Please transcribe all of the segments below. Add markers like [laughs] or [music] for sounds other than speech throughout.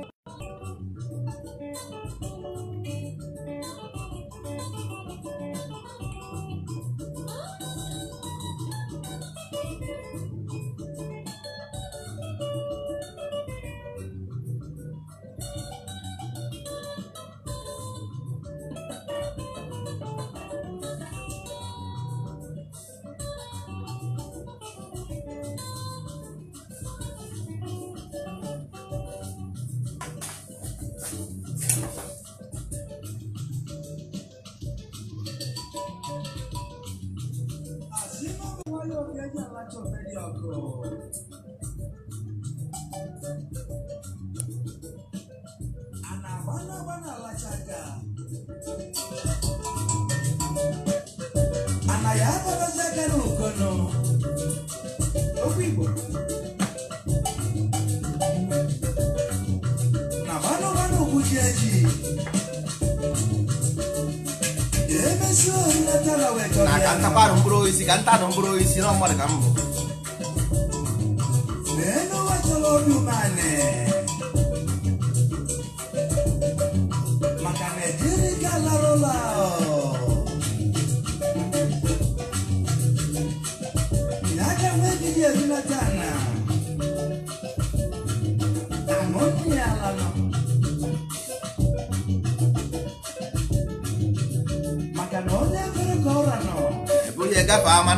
a aa onye alachọbeghị ọgụ a na-agbana agbana alachaga ana ya abanazaga na ka mkpụrụ osisi ka nta nụ mkpụrụ osisi na mmadụ ka m bụ eh.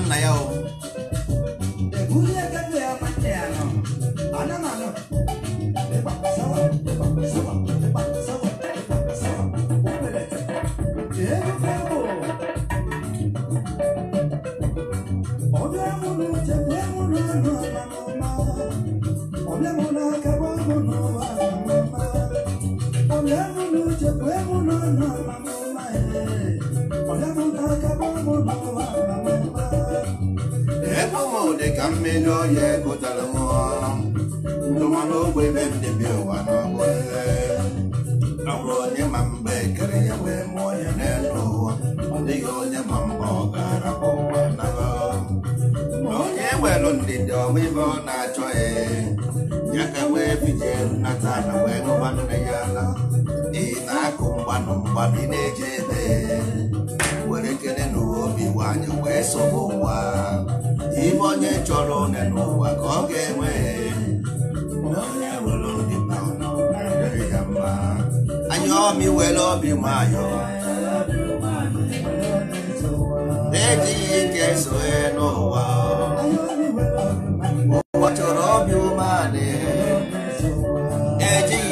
na ya o ọmị were obi nwayọ na-ejighị ike soe n'ụwa ụwa chọrọ obi umeanị ejighị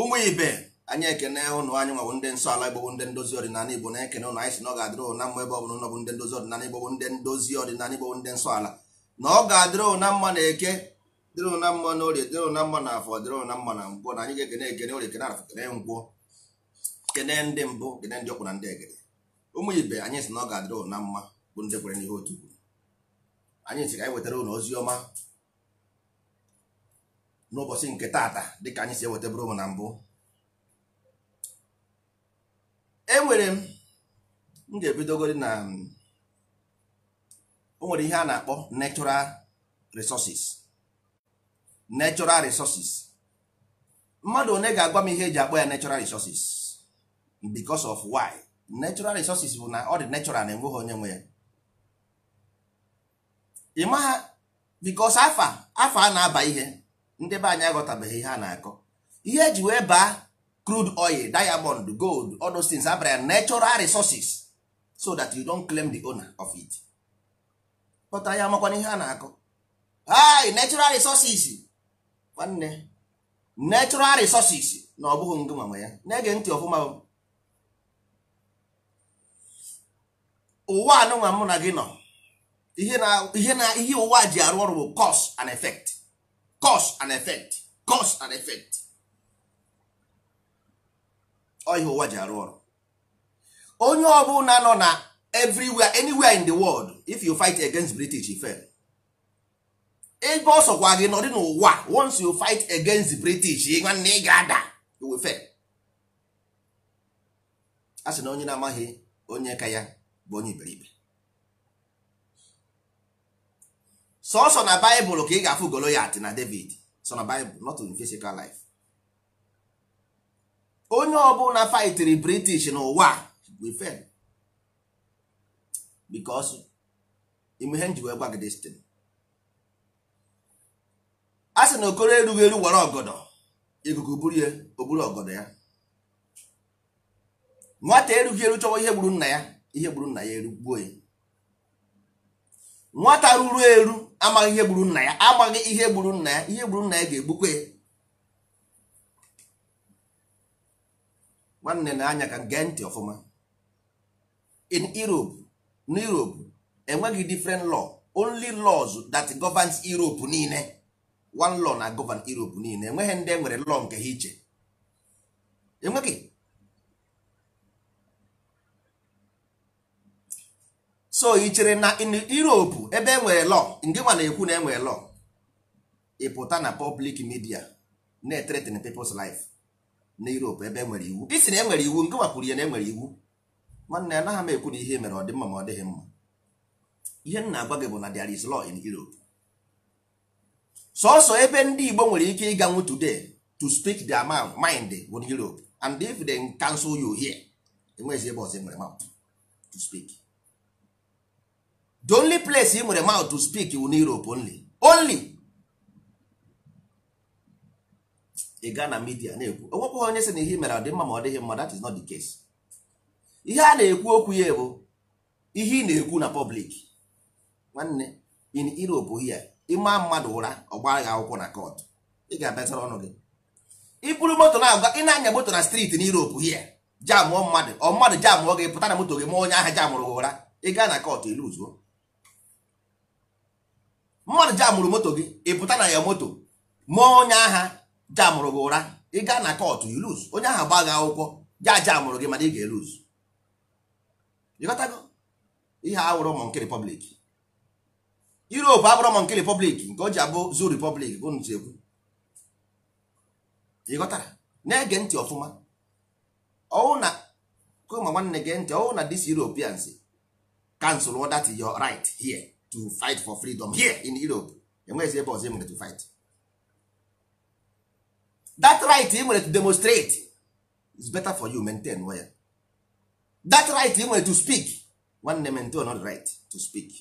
ụmụ ibe anyị ekene ụnụ anyị nwawo ndị nsọ ala igbo ndị ndozi ọdịnala igbo na-ekene ụnụ anyị si na ọ ga-adịrị ụna mma ebe ọ bụla bụ ndị ndozi ọdịnala igbo ndị ndozi ọdịnala igbo ndị nsọ ala na ọ ga-adịrị ụna mma na eke dịrị ụna mma na orie dịrị ụna mma na afọ dịrị ụna mma na ngwọ na anyị ga-ekene ekene orie kene afọ kene ngwọ kene ndị mbụ kene ndị ọkwụ na ndị egede ụmụ ibe anyị si na ọ ga-adịrị ụna mma bụ ndị kwere n'ihe otu kwuru anyị si ka anyị wetara ụnụ ozi ọma n'ụbọchị nke taata dịka anyị si eweta bụrụ m na mbụ enwere m m ga-ebidogori na o nwere ihe a na-akpọ natural resources natural resources mmadụ one ga-agwa m ihe eji akpọ ya natural resources because of why natural resources bụ na ọ dị natural na enweghị onye nwe ya ị maha because afa afa a na-aba ihe ndị be anyị aghọtabeghị ihe a na-akọ ihe eji wee baa crude oil diamond gold all those things abara natural resources so that you don't claim the owner of it pụtara ya amakwana ihe a na-akọ hi natural resources nwanne natural resources na ọ bụghị ngị ya na-ege ntị ọfụma ụwa anụnwa mụ na gị nọ ihe ụwa ji arụ ọrụ bụ cause and effect cause and effect cause and effect ihe ụwa ji arụ ọrụ onye ọ bụla nọ na everywhere anywhere in the world if you fight against british you fail ebe ọ sọkwa gị nọdị n'ụwa once you fight against the british nwanne ị ga-ada you will fail a sị na onye na-amaghị onye ka ya bụ onye iberibe sọsọ na baịbụl ka ị ga-afụ golo ya atị na David sọ na baịbụl not in physical life onye ọbụla fightiri British n'ụwa we fail because ime ihe nji wee gwa gị destin a sị na okoro erughị eru were ọgọdọ ikuku buru ya oburu ọgọdọ ya nwata erughị eru chọwa ihe gburu nna ya ihe gburu nna ya erugbuo ya nwata ruru eru amaghị ihe gburu nna ya amaghị ihe gburu nna ya ihe gburu nna ya ga egbukwe nwanne na-anya ka gee ntị ọfụma in Europe na Europe enweghị different law only laws that govern Europe niile one law na govern Europe niile enweghị ndị enwere law nke ha iche enweghị so ị chere na europe ebe enwere lọ ndị nwa na-ekwu na enwere lọ ịpụta na pọblik midia na-threaten people's life na europe ebe enwere iwu isi na enwere iwu ngịnwa kwuru ya na enwere iwu nwanne ya anaghị m ekwu na ihe mere ọ dị mma ma ọ dịghị mma ihe m na-agwa gị bụ na there is law in europe sọsọ ebe ndị igbo nwere ike ịga ịganwu today to speak their mind bụ europe and if they cancel you here enweghịzi ebe ọzọ e nwere mouth to speak the only place ị nwere mouth to speak wu n'Europe only only ị gaa na midia na-ekwu onwekwaghị onye sị na ihe mere ọ dị mma ma ọ dịghị mma that is not the case ihe a na-ekwu okwu ya bụ ihe ị na-ekwu na public nwanne in Europe here ịma mmadụ ụra ọgba gị akwụkwọ na court ị ga abịasara ọnụ gị iburu moto na-agwa ị na-anya moto na street na Europe here jamụọ mmadụ ọ mmadụ jamụọ gị pụta na moto gị ma onye ahụ jamụrụ gị ụra ị gaa na court iluzuo mmadụ jamụrụ moto gị ị pụta na ya moto ma onye agha jamụrụ gị ụra ị gaa na kọtụ iluz onye agha gba gị akwụkwọ ja jamụrụ gị mana ị ga-eluz ịghọtago ihe awụrụ mọnke repọblik Europe abụrụ mọnke repọblik nke o ji abụ zu repọblik bụ ntu egwu ịghọtara na-ege ntị ọfụma ọwụ na kụma nwanne gee ntị ọwụ na dis Europeans cancel that your right here to fight for freedom here in Europe enweghịzi ebe ọzọ ị nwere to fight that right ị nwere to demonstrate is better for you maintain well that right ị nwere to speak nwanne maintain not right to speak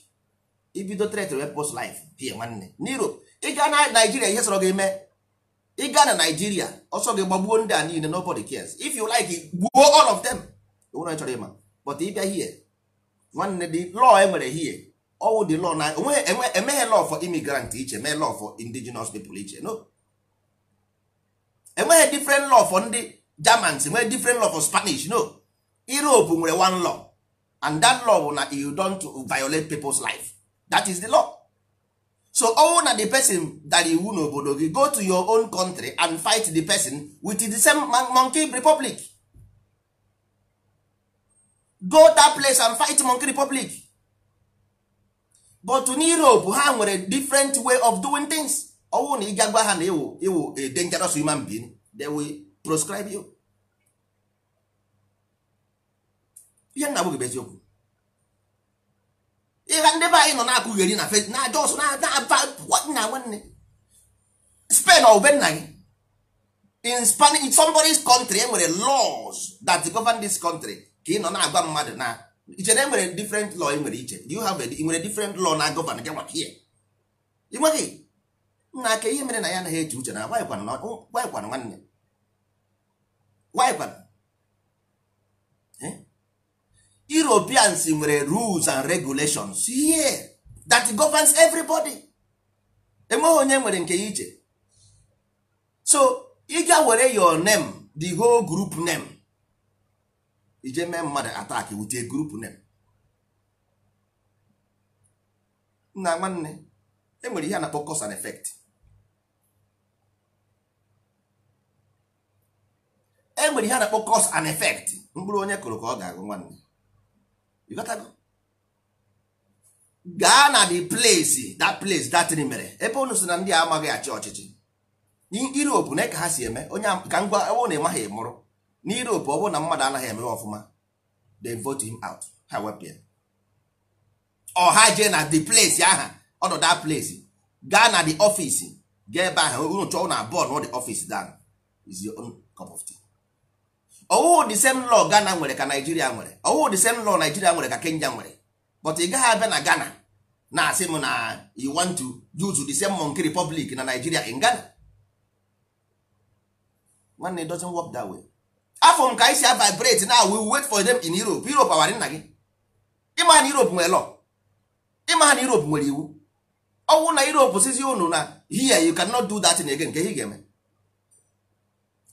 ibido threat repos life pie nwanne n'Europe ịga na Nigeria ihe sọrọ gị mee ịga na Nigeria ọsọ gị gbagbuo ndị a niile nobody cares if you like gbuo all of them onwere chọrọ ịma but ịbịa here nwanne the law enwere here ọwụ dị lọ na emeghe law for immigrant iche mee law for indigenous people iche no enweghị different law for ndị germans enweghị different law for spanish no europe nwere one law and that law bụ na you don't violate people's life that is the law so ọwụ na the person dara iwu n'obodo gị go to your own country and fight the person with the same monkey republic go that place and fight monkey republic but in Europe ha nwere different way of doing things ọwụ na ị ga gwa ha na iwu iwu a dangerous human being they will proscribe you ihe nna abụghị eziokwu ihe ndị be anyị nọ na-akụgheri na fe na aja ọsọ na nwanne Spain ọ be nna gị in Spanish in somebody's country enwere laws that govern this country ka ị nọ na-agwa mmadụ na iche na enwere different law ị nwere iche you have ị nwere different law na gọvan gị maka ihe ị nweghị nna aka ihe mere na ya anaghị eche uche na gwaịkwana oh, nwanne gwaịkwana eh? Europeans nwere rules and regulations here that governs everybody enweghị onye nwere nke ya iche so ị ga were your name the whole group name ije mee mmadụ atak with a group name nna nwanne enwere ihe a na-akpọ cause and effect enwere ihe a na-akpọ cause and effect mkpụrụ onye kụrụ ka ọ ga-agụ nwanne gaa na the place that place that thing mere ebe unu si na ndị a amaghị achị ọchịchị europe na ka ha si eme onye ka ngwa ewu na-emaghị mụrụ na Europe ọ bụrụ na mmadụ anaghị eme ọfụma they vote him out ha wepụ ya jee na the place aha ọnọdụ that place gaa na the office gaa ebe ahụ unu chọọ na bọọlụ ọ the office down is your own cup of tea ọwụwụ the same law Ghana nwere ka Nigeria nwere ọwụwụ the same law Nigeria nwere ka Kenya nwere but ị gaghị abịa na Ghana na-asị m na you want to use the same monkey republic na Nigeria in Ghana nwanne it doesn't work that way afọ m ka anyị si a vibrate na we wait for them in Europe Europe awara nna gị ịma na Europe nwere law ịma na Europe nwere iwu ọnwụ na Europe sizi unu na here you cannot do that again nke ihe ga-eme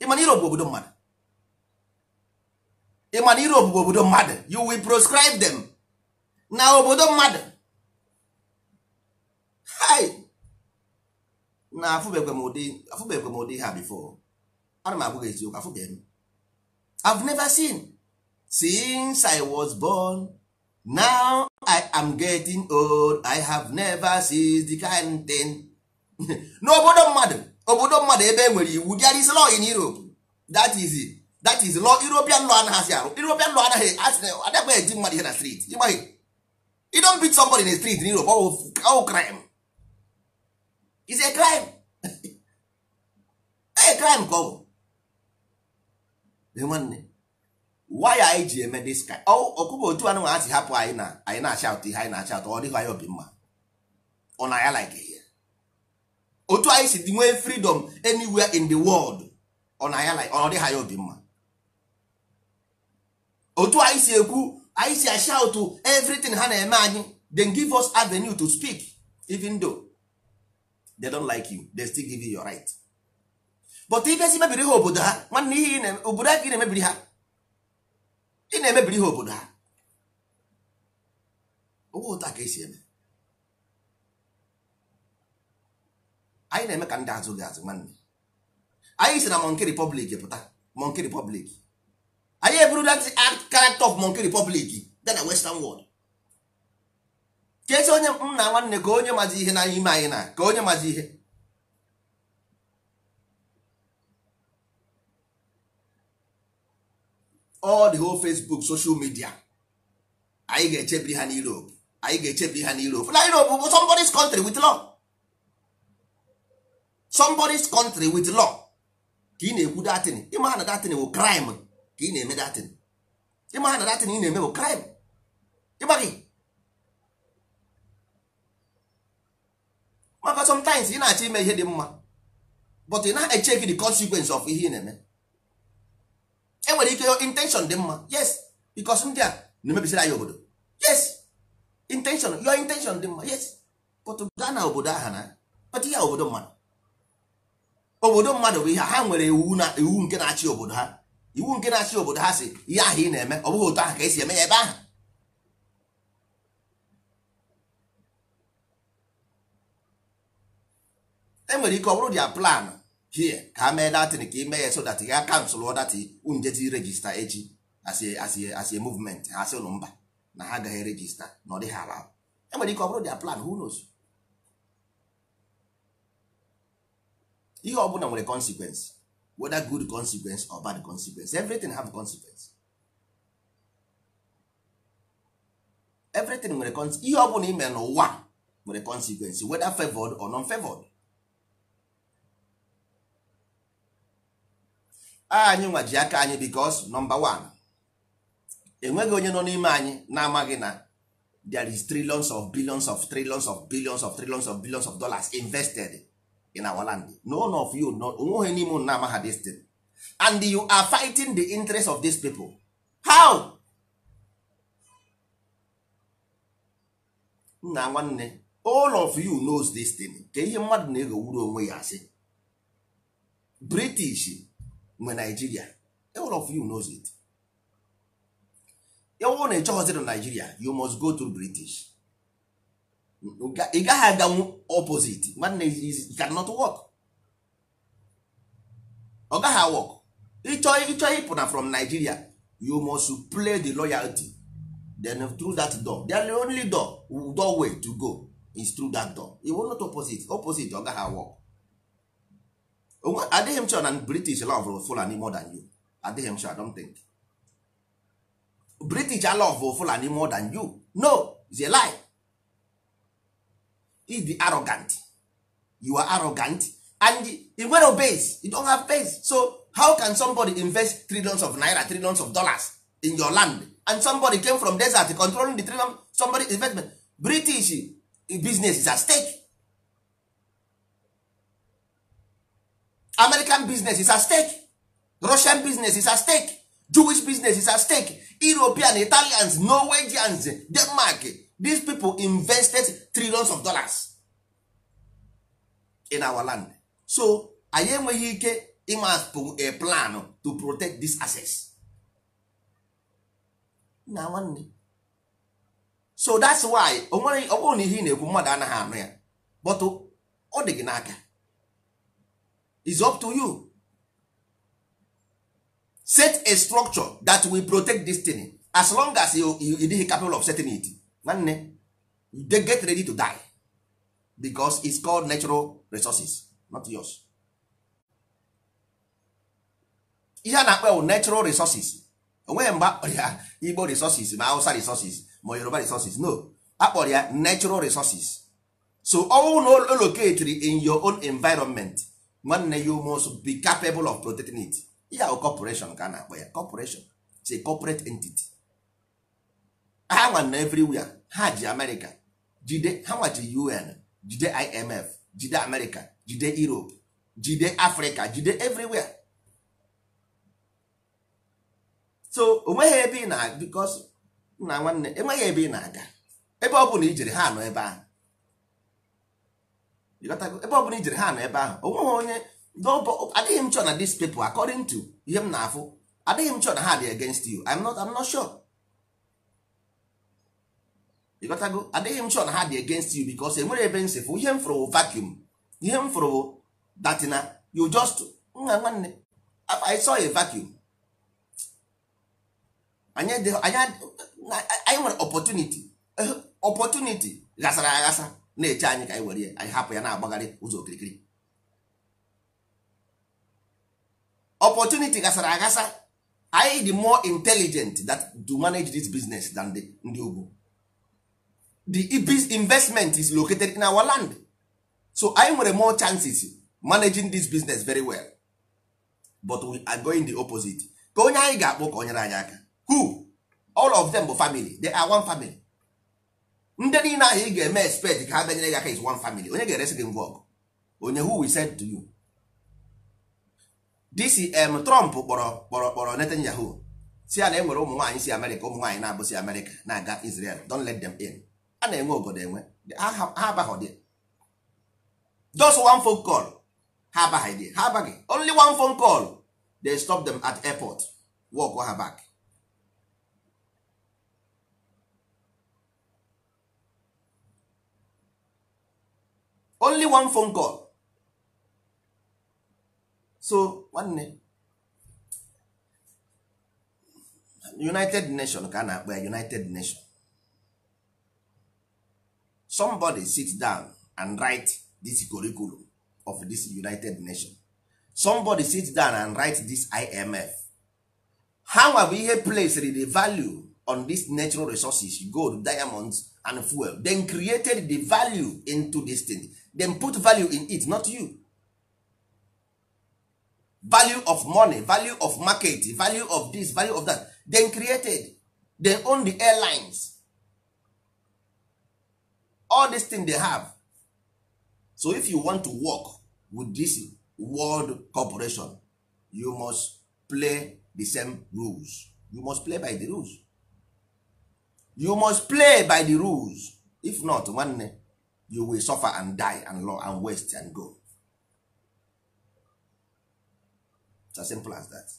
ịma na Europe bụ obodo mmadụ ịma na Europe bụ obodo mmadụ you will proscribe them na obodo mmadụ hai na afụbekwe m ụdị afụbekwe m ụdị ha before ana m agwa gị eziokwu afụbeghị m I've never seen since I was born now I am getting old I have never seen the kind thing. [laughs] n'obodo mmadụ obodo mmadụ ebe e nwere iwu there is law in Europe that is that is law European law and arụ European law anaghị adakpa eji mmadụ ihe na street ịgbaghị you don't beat somebody in the street in Europe all crime is a crime [laughs] a crime ka ọ bụ nwanne why anyị ji eme dis ka ọkụkọ otu anụ asị hapụ anyị na anyị na-achị atụ ihe anyị na-achị atụ ọ dịghị anyị obi mma ọ na ya like ihe otu anyị si nwee freedom anywhere in the world ọ na ya like ọ dịghị anyị obi mma otu anyị si ekwu anyị si to everything ha na-eme anyị then give us avenue to speak even though they don't like you they still give you your right. but ibezi mebiri ha obodo ha nwanne ihe obodo aka ị na-emebiri ha ị na-emebiri ha obodo ha ụgwọ ụta ka esi eme anyị na-eme ka ndị azụ gị azụ nwanne anyị si na Monkey Republic pụta Monkey Republic anyị eburula the art character of Monkey Republic dị na Western world ka esi onye nna nwanne ka onye mazi ihe n'ime anyị na ka onye mazi ihe all the whole facebook social media anyị ga-echebiri ha n'Europe anyị ga-echebiri ha n'Europe na Europe bụ somebody's country with law somebody's country with law ka ị na-ekwu datin ịma na datin bụ crime ka ị na-eme datin ịma na datin ị na-eme bụ crime ịgbaghị maka sometimes ị na-achọ ime ihe dị mma but ị na-echeki the consequence of ihe ị na-eme enwere ike intention dị mma yes because ndị a na-emebisiri anyị obodo yes intention your intention dị mma yes but gaa na obodo aha na kpata ihe obodo mmadụ obodo mmadụ bụ ihe ha nwere iwu na iwu nke na-achị obodo ha iwu nke na-achị obodo ha si ihe ahụ ị na-eme ọ bụghị otu ahụ ka esi eme ya ebe ahụ enwere ike ọ bụrụ dia plan here ka mee datin ka ime ya so that ya kansụl ọdati unjeti regista echi as a movement ha sị ụlọ mba na ha agaghị regista na ọ dịghị ala enwere ike ọ bụrụ dia plan who knows ihe ọ bụla nwere consequence whether good consequence or bad consequence everything have consequence everything nwere consequence ihe ọ bụla ime n'ụwa nwere consequence whether favored or non favored anyị nwa ji aka anyị bikos nọmba wan enweghị onye nọ n'ime anyị na-amaghị na there is trillions of billions of trillions of billions of trillions of billions of dollars invested in our land no one of you onweghị n'ime unu na-amaha this and you are fighting the interest of these people how nna nwanne all of you knows this thing ka ihe mmadụ na-eghowuru onwe ya asị british mgbe naijiria all of you knows it ewu na ịchọghọziri naijiria you must go to british ị gaghị aganwu opposite nwanne cannot work ọ gaghị awọk ịchọ ịpụna from nigeria you must play the loyalty then through that door the only door way to go is through that door you will not opposite opposite ọ gaghị awọk adịghị m chọ na british love fulani more than you adịghị m chọ i don't think british love fulani more than you no it's a lie you be arrogant you are arrogant and you nwere base you don't have base so how can somebody invest trillions of naira trillions of dollars in your land and somebody came from desert controlling the trillion somebody investment british eh, business is at stake american business is at stake russian business is at stake jewish business is at stake european italians norwegians denmark these people invested trillions of dollars in our land so anyị enweghị ike ịmapụ a plan to protect this access na nwanne so that's why ọ bụrụ na ihe ị na-ekwu mmadụ anaghị anụ ya but ọ dị gị n'aka is up to you set a structure that will protect this thing as long as you dịghị capable of setting it nwanne they get ready to die because it's called natural resources not yours ihe a na-akpọ natural resources onweghị mgbe ya igbo resources ma hausa resources ma yoruba resources no akpọrọ ya natural resources so ọnwụ na oloketri in your own environment nwanne ya ume be capable of protecting it ya bụ corporation ka a na-akpọ ya corporation it's a corporate entity ha nwanne na everywhere ha ji America jide ha nwa ji UN jide IMF jide America jide Europe jide Africa jide everywhere so onweghị ebe ị na because nna nwanne enweghị ebe ị na-aga ebe ọ bụla ijere ha nọ ebe ahụ ebe ọ bụla ijere ha nọ ebe ahụ onweghị onye adịghị m chọọ na this people according to ihe m na-afụ adịghị m chọ na ha dị against you I'm not I'm not sure ịgotago adịghị m chọ na ha dị against you because enwere ebe m sịfụ ihe m fụrụ vacuum ihe m fụrụ datina you just nwa nwanne I saw a vacuum anyị nwere opportunity opportunity ghasara aghasa na-eche anyị ka anyị were anyị hapụ ya na-agbagharị ụzọ okirikiri opportunity gasara agasa anyị dị more intelligent that to manage this business than the ndị ugwu the investment is located in our land so anyị nwere more chances managing this business very well but we are going the opposite ka onye anyị ga-akpọ ka o nyere anyị aka who all of them bụ family they are one family ndị niile ahụ ị ga-eme expect ka ha bịanyere gị aka is one family onye ga-eresi gị ngwa ọgụ onye who we said to you dcm um, trump kpọrọ kpọrọ kpọrọ netanyahu si a na enwere ụmụ nwaanyị si amerịka ụmụ nwaanyị na-abụsi amerịka na-aga israel don't let them in a na-enwe obodo enwe ha abaghị dị just one phone call ha abaghị dị ha abaghị only one phone call they stop them at airport walk ha back only one phone call so nwanne united nation ka a na-akpọ ya united nation somebody sit down and write this curriculum of this united nation somebody sit down and write this imf how have ihe place the value on these natural resources gold diamonds and fuel then created the value into this thing dem put value in it not you value of money value of market value of this value of that then created dem own the airlines all this thing they have so if you want to work with this world corporation you must play the same rules you must play by the rules you must play by the rules if not nwanne you will suffer and die and law and waste and go it's as simple as that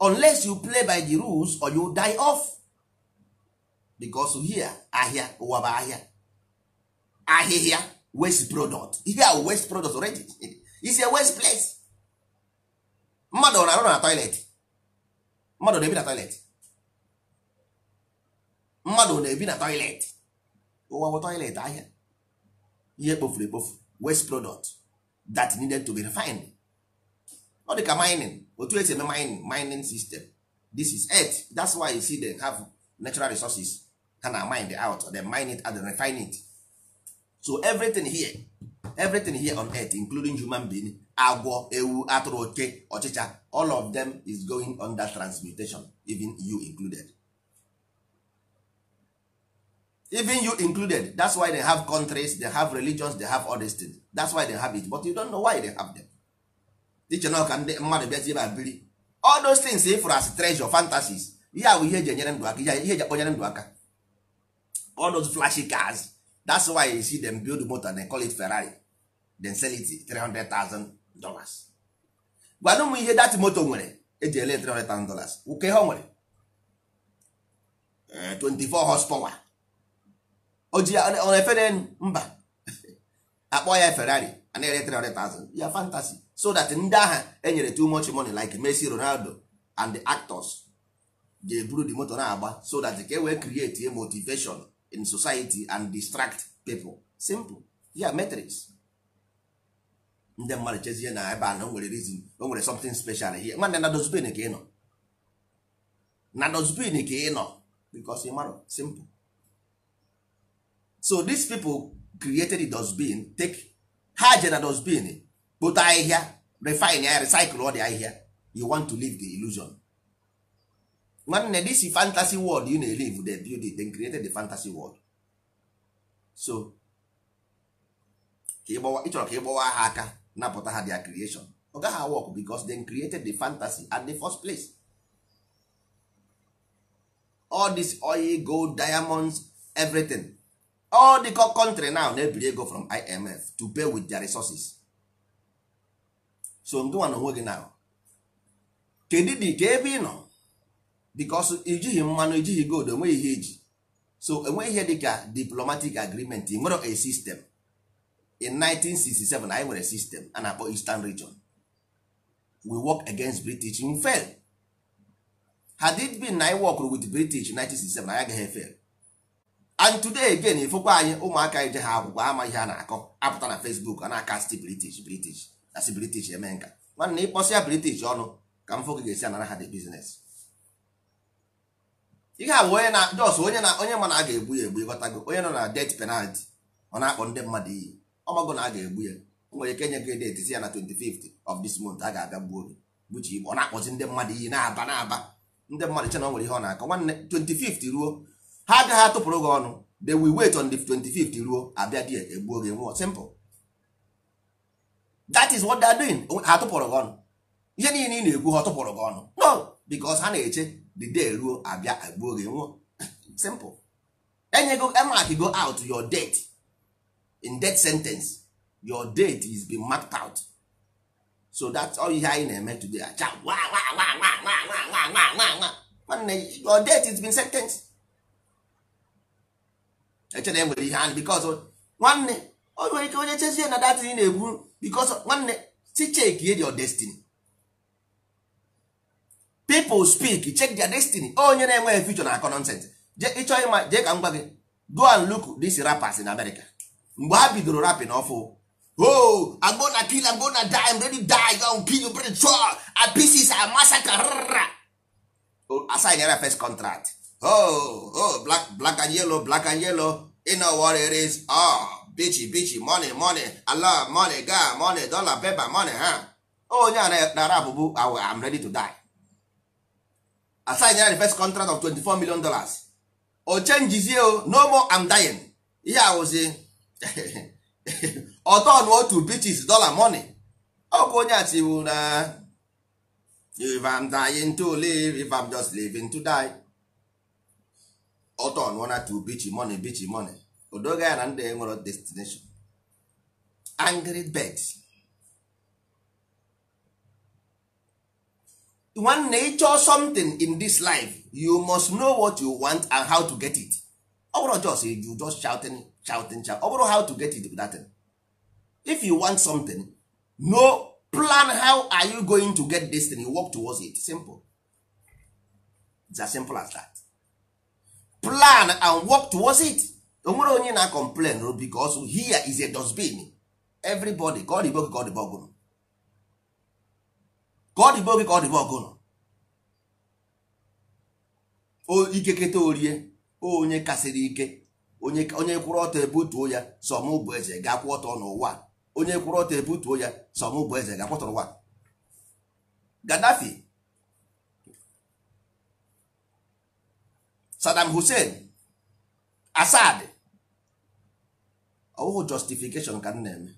unless you play by the rules or you die off because here ahia ụwa bụ ahịa ahịhịa waste product you a waste product already is [laughs] a waste place mmadụ na-arụ na toilet mmadụ na-ebi na toilet mmadụ na-ebi na toilet ụwa toilet ahịa ihe kpofuru ekpofu waste product that needed to be refined ọ dị ka mining otu esi eme mining mining system this is earth that's why you see dem have natural resources ha na mine it out then mine it and then refine it so everything here everything here on earth including human being agwọ ewu atụrụ oke ọchịcha all of them is going under transmutation even you included even you included that's why they have countries they have religions they have all these things that's why they have it but you don't know why they have them teacher na ọka ndị mmadụ bịazie biri all those things eh, for as treasure fantasies ihe bụ ihe eji enyere ndụ aka ihe eji akpọnyere ndụ aka all those flashy cars that's why you see them build motor they call it Ferrari then sell it 300,000 dollars gwanụ m ihe dat moto nwere eji ele 300,000 dollars ụka ihe o nwere 24 eh, horsepower oji ọ na-efere mba [laughs] akpọ ya ferrari ana ere 300,000 ya fantasy so that ndị agha enyere too much money like Messi Ronaldo and the actors ga-eburu the moto na-agba so that ka e wee create a motivation in society and distract people simple ya metrics ndị mmadụ chezie na ebe a na o nwere reason o nwere something special here nwanne na dozbin ka ị nọ na dozbin ka ị nọ because ị mara simple so these people created the dustbin take ha je na dustbin kpota ahịhịa refine ya recycle ọ dị ahịhịa you want to leave the illusion nwanne this fantasy world you na live the build it they created the fantasy world so ịchọrọ ka gbawa ha aka napụta ha their creation ọ gaghị work because they created the fantasy at the first place all this oil gold diamonds everything all the country now na-ebiri ego from imf to pay with their resources so ngịnwa na onwe gị now kedu dị ka ebe ị nọ because ijighị mmanụ ijighị gold enweghị ihe eji. so enweghị ihe dịka diplomatic agreement nwere a system in 1967 anyị nwere system a na-akpọ eastern region we work against british we fail had it been na I work with british 1967 anyị agaghị e fail and today again ifokwa anyị ụmụaka ije ha akwụkwọ ama ihe a na-akọ apụta na Facebook a na-akasti british british asị british eme nka nwanne ịkpọsị ya british ọnụ ka mfo ga-esi anara ha dị bizines ihe a bụ onye na jos onye na onye ma na a ga-egbu ya egbu ịghọtago onye nọ na det penalti ọ na-akpọ ndị mmadụ iyi ọmago na a ga-egbu ya o nwere ike nye gị det si ya na 25th of this month a ga-abịa gbuo gị gbuchi igbo ọ na-akpọzi ndị mmadụ iyi na-aba na-aba ndị mmadụ che na o nwere ihe ọ na-akọ nwanne 25 ruo ha agaghị atụpụrụ gị ọnụ will wait on the 25th ruo abịa di egbuo nwụọ simple that is what they are doing ha atụpụrụ gị ọnụ ihe niile ị na-ekwu ha tụpụrụ gị ọnụ no because ha na-eche the day ruo abịa egbuo gị nwụọ [laughs] simple enyego emark go out your date in that sentence your date is being marked out so that's all ihe anyị na-eme today acha nwanne your date is been sentenced eche na enwere ihe anyị bikos nwanne o nwere ike onye chezie na datin na-ebu bikos nwanne si chek ye your destiny people speak check their destiny onye na-enweghị future na akọ nonsense je ịchọ ịma jee ka m gwa gị go and look this rappers in America mgbe ha bidoro rapping ọfụ oh I'm gonna kill I'm gonna die I'm ready die I'm kill you chọ a pieces a massacre assign ya first contract oh oh black black and yellow black and yellow you know what it is oh ah, bichi bichi money money ala money ga money dollar paper money ha onye oh, nara na arabụbụ I'm ready to die assign ya the first contract of 24 million dollars o oh, chenjizie o oh. no more I'm dying ihe awụzi ọtọ na otu bichis dollar money bụ onye a tiwu na if I'm dying to live if I'm just living to die ọtọ ọnụọna to bichi money bichi money odoga ya na ndị enwere destination angry bird nwanne nature something in this life you must know what you want and how to get it ọ bụrụ just you just shouting shouting shout ọ bụrụ how to get it that thing. if you want something no plan how are you going to get this thing you work towards it simple it's as simple as that plan and work towards it onwere onye na complain ro oh, bicos here is a dustbin everybody ka ọ dịbe oge ka ọ dịbe gị. ka ọ dịbe oge ka ọ dịbe ọgụnụ ikeketa orie onye kasịrị ike onye kwụrụ ọtọ ebutuo ya sọmụ bụ eze ga-akwụ ọtọ n'ụwa onye kwụrụ ọtọ ebutuo ya sọmụ bụ eze ga-akwụtọrọ ụwa Gadafi. Saddam Hussein Assad ọwụhụ justification ka m na-eme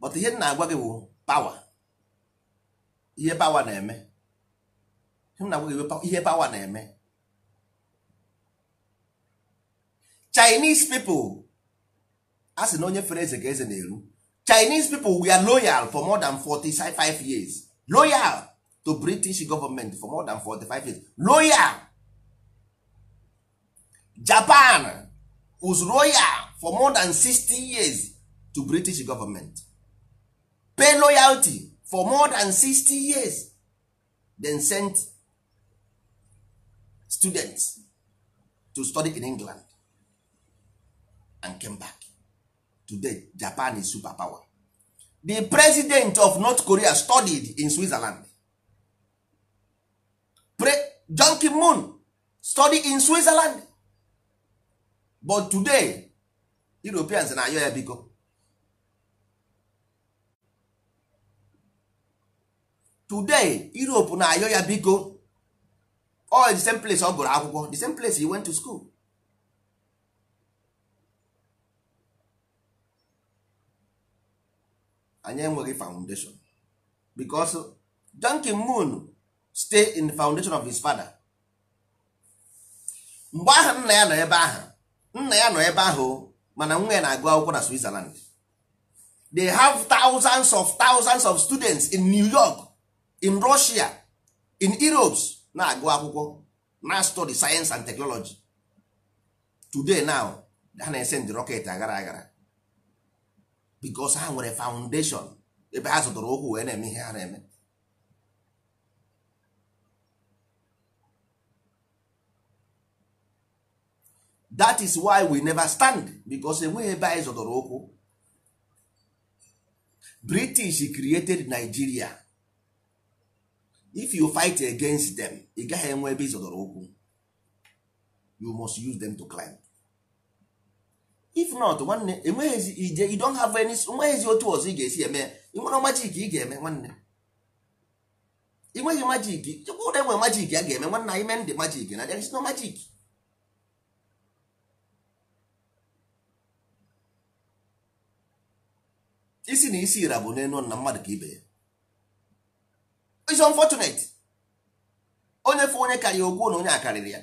but ihe m na-agwa gị bụ power ihe pawa na-eme ihe na-eme Chinese people a sị na onye fere eze ka eze na-eru Chinese people we are loyal for more than 45 years loyal to British government for more than 45 years loyal japan was royal for more than 60 years to british government pay loyalty for more than 60 years then send students to study in england and came back today japan is superpower the president of north korea studied in switzerland Pre- John Kim Moon studied in switzerland but today europeans na-ayọ ya biko today europe na-ayọ ya biko all the same place ọ gụrụ akwụkwọ the same place he went to school anyị enweghị foundation because donkin Moon stay in the foundation of his father mgbe ahụ nna ya nọ ebe ahụ nna ya nọ ebe ahụ mana nwa ya na-agụ akwụkwọ na Switzerland they have thousands of thousands of students in New York in Russia in Europe na-agụ akwụkwọ na study science and technology today now ha na-ese ndị rocket aghara aghara becos ha nwere foundation ebe ha zụtara ụkwụ wee na-eme ihe ha na-eme that is why we never stand because enweghị ebe anyị zọdọrọ ụkwụ british created nigeria if you fight against them ị gaghị enwe ebe ịzọdọrọ ụkwụ you must use them to climb if not nwanne enweghịzi ije you don't have any enweghịzi otu ọzọ ị ga-esi eme ị nwere majik ị ga-eme nwanne ị nweghị majik chekwa ụda enwe majik a ga-eme nwanne anyị mee ndị majik na there is no majik isi na isi ira bụ n'elu na mmadụ ka ibe ya is unfortunate onye fụ onye karịa okwu na onye akarịrị ya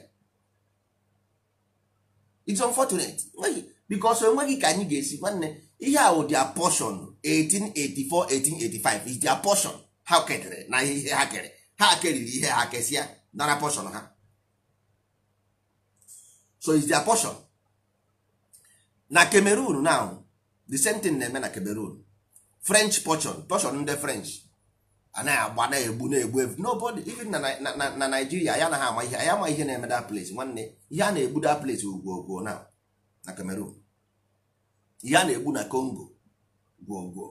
it's unfortunate nweghị because enweghị ka anyị ga-esi nwanne ihe a wụ their portion 1884 1885 is dia portion ha kedere na ihe ha kere ha keriri ihe ha kesịa nara portion ha so is dia portion na Cameroon now the same thing na-eme na Cameroon french portion portion ndị french anaghị agba na-egbu na-egbu evu nobody even na naijiria ya anaghị ama ihe ya ama ihe na-eme that place nwanne ihe a na-egbu that place ugwogwo na na cameroon ihe a na-egbu na congo gwogwo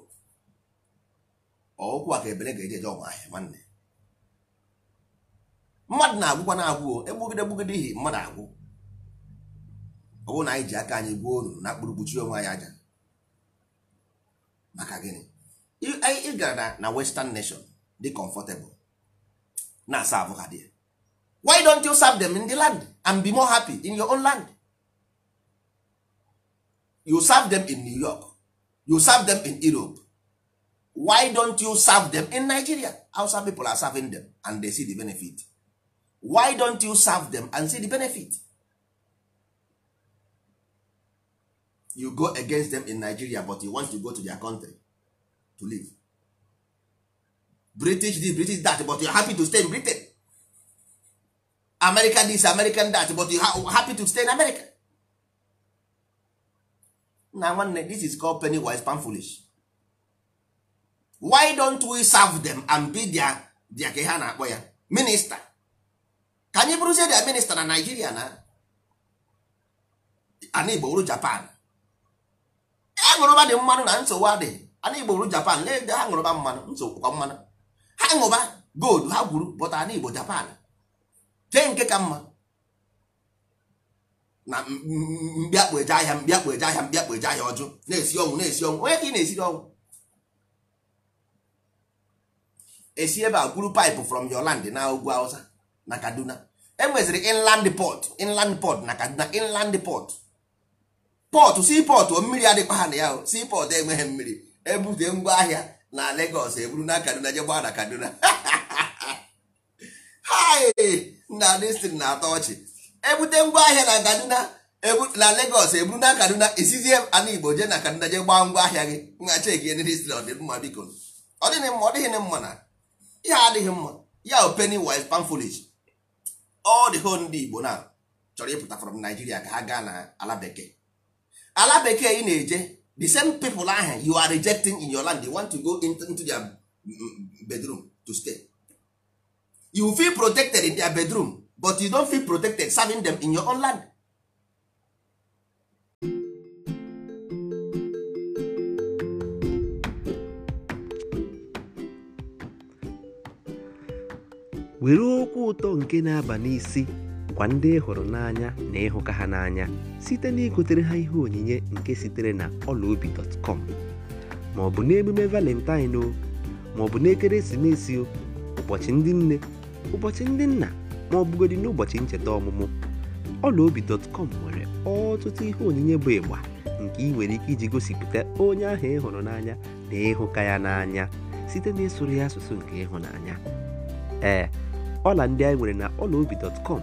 ọụkwụ a ka ebere ga-eje eje ahịa nwanne mmadụ na-agwụkwa na-agwụ egbugide egbugide ihi mmadụ agwụ ọ bụrụ na anyị ji aka anyị gwuo unu na kpụrụ kpuchie onwe anyị aja maka gịnị ị gara na western nation dị comfortable na serve abụ ha why don't you serve them in the land and be more happy in your own land you serve them in new york you serve them in europe why don't you serve them in nigeria outside people are serving them and they see the benefit why don't you serve them and see the benefit you go against them in nigeria but you want to go to their country to live british this british that but you happy to stay in britain american this american that but you ha happy to stay in america na nwanne this is called penny wise pan foolish why don't we serve them and be their their ka ha na-akpọ ya minista ka say bụrụzie their minista na nigeria na ana igbo japan aṅụrụba dị mmanụ na nsogbu adịghị ana igbo ru japan na-ede ha ṅụrụba mmanụ nsogbukwa mmanụ ha ṅụba gold ha gwuru bọta ana igbo japan jee nke ka mma na mbiakpụ eje ahịa mbiakpụ eje ahịa mbiakpụ eje ahịa ọjụ na-esi ọnwụ na-esi ọnwụ onye ka ị na-esiri ọnwụ esi ebe a gwuru paịpụ from your land na ugwu Hausa na Kaduna enweziri inland port inland port na Kaduna inland port pọtụ sii mmiri adịkwa ha na ya sii enweghị mmiri ebute ngwa ahịa na Lagos eburu na Kaduna jegba [laughs] na Kaduna na destin na-atọ ọchị ebute ngwa ahịa na Kaduna na Lagos eburu na Kaduna isizie ala Igbo jee na Kaduna jee gbaa ngwa ahịa gị nha cheki ndịstri ọdịmma biko ọ dịghị mma ọ dịghị mma na ihe adịghị mma ya openi wise pamfolish ọ dị ho ndị Igbo na chọrọ ịpụta from Nigeria ka ha gaa na ala bekee ala bekee ị na-eje the same people ahụ you are rejecting in your land they want to go into their mm, mm, bedroom to stay you feel protected in their bedroom but you don feel protected serving them in your own land were okwu ụtọ nke na-aba n'isi bụkwa ndị ị hụrụ n'anya na ịhụka ha n'anya site na igotere ha ihe onyinye nke sitere na ọlaobi.com ma ọ bụ n'emume valentine o ma ọ bụ n'ekeresimesi o ụbọchị ndị nne ụbọchị ndị nna ma ọ bụgodị n'ụbọchị ncheta ọmụmụ dọtkọm nwere ọtụtụ ihe onyinye bụ ịgba nke ị nwere ike iji gosipụta onye ahụ ị hụrụ n'anya na ịhụka ya n'anya site eh, na ịsụrụ ya asụsụ nke ịhụnanya ee ọla ndị anyị nwere na ọla obi ọlaobi.com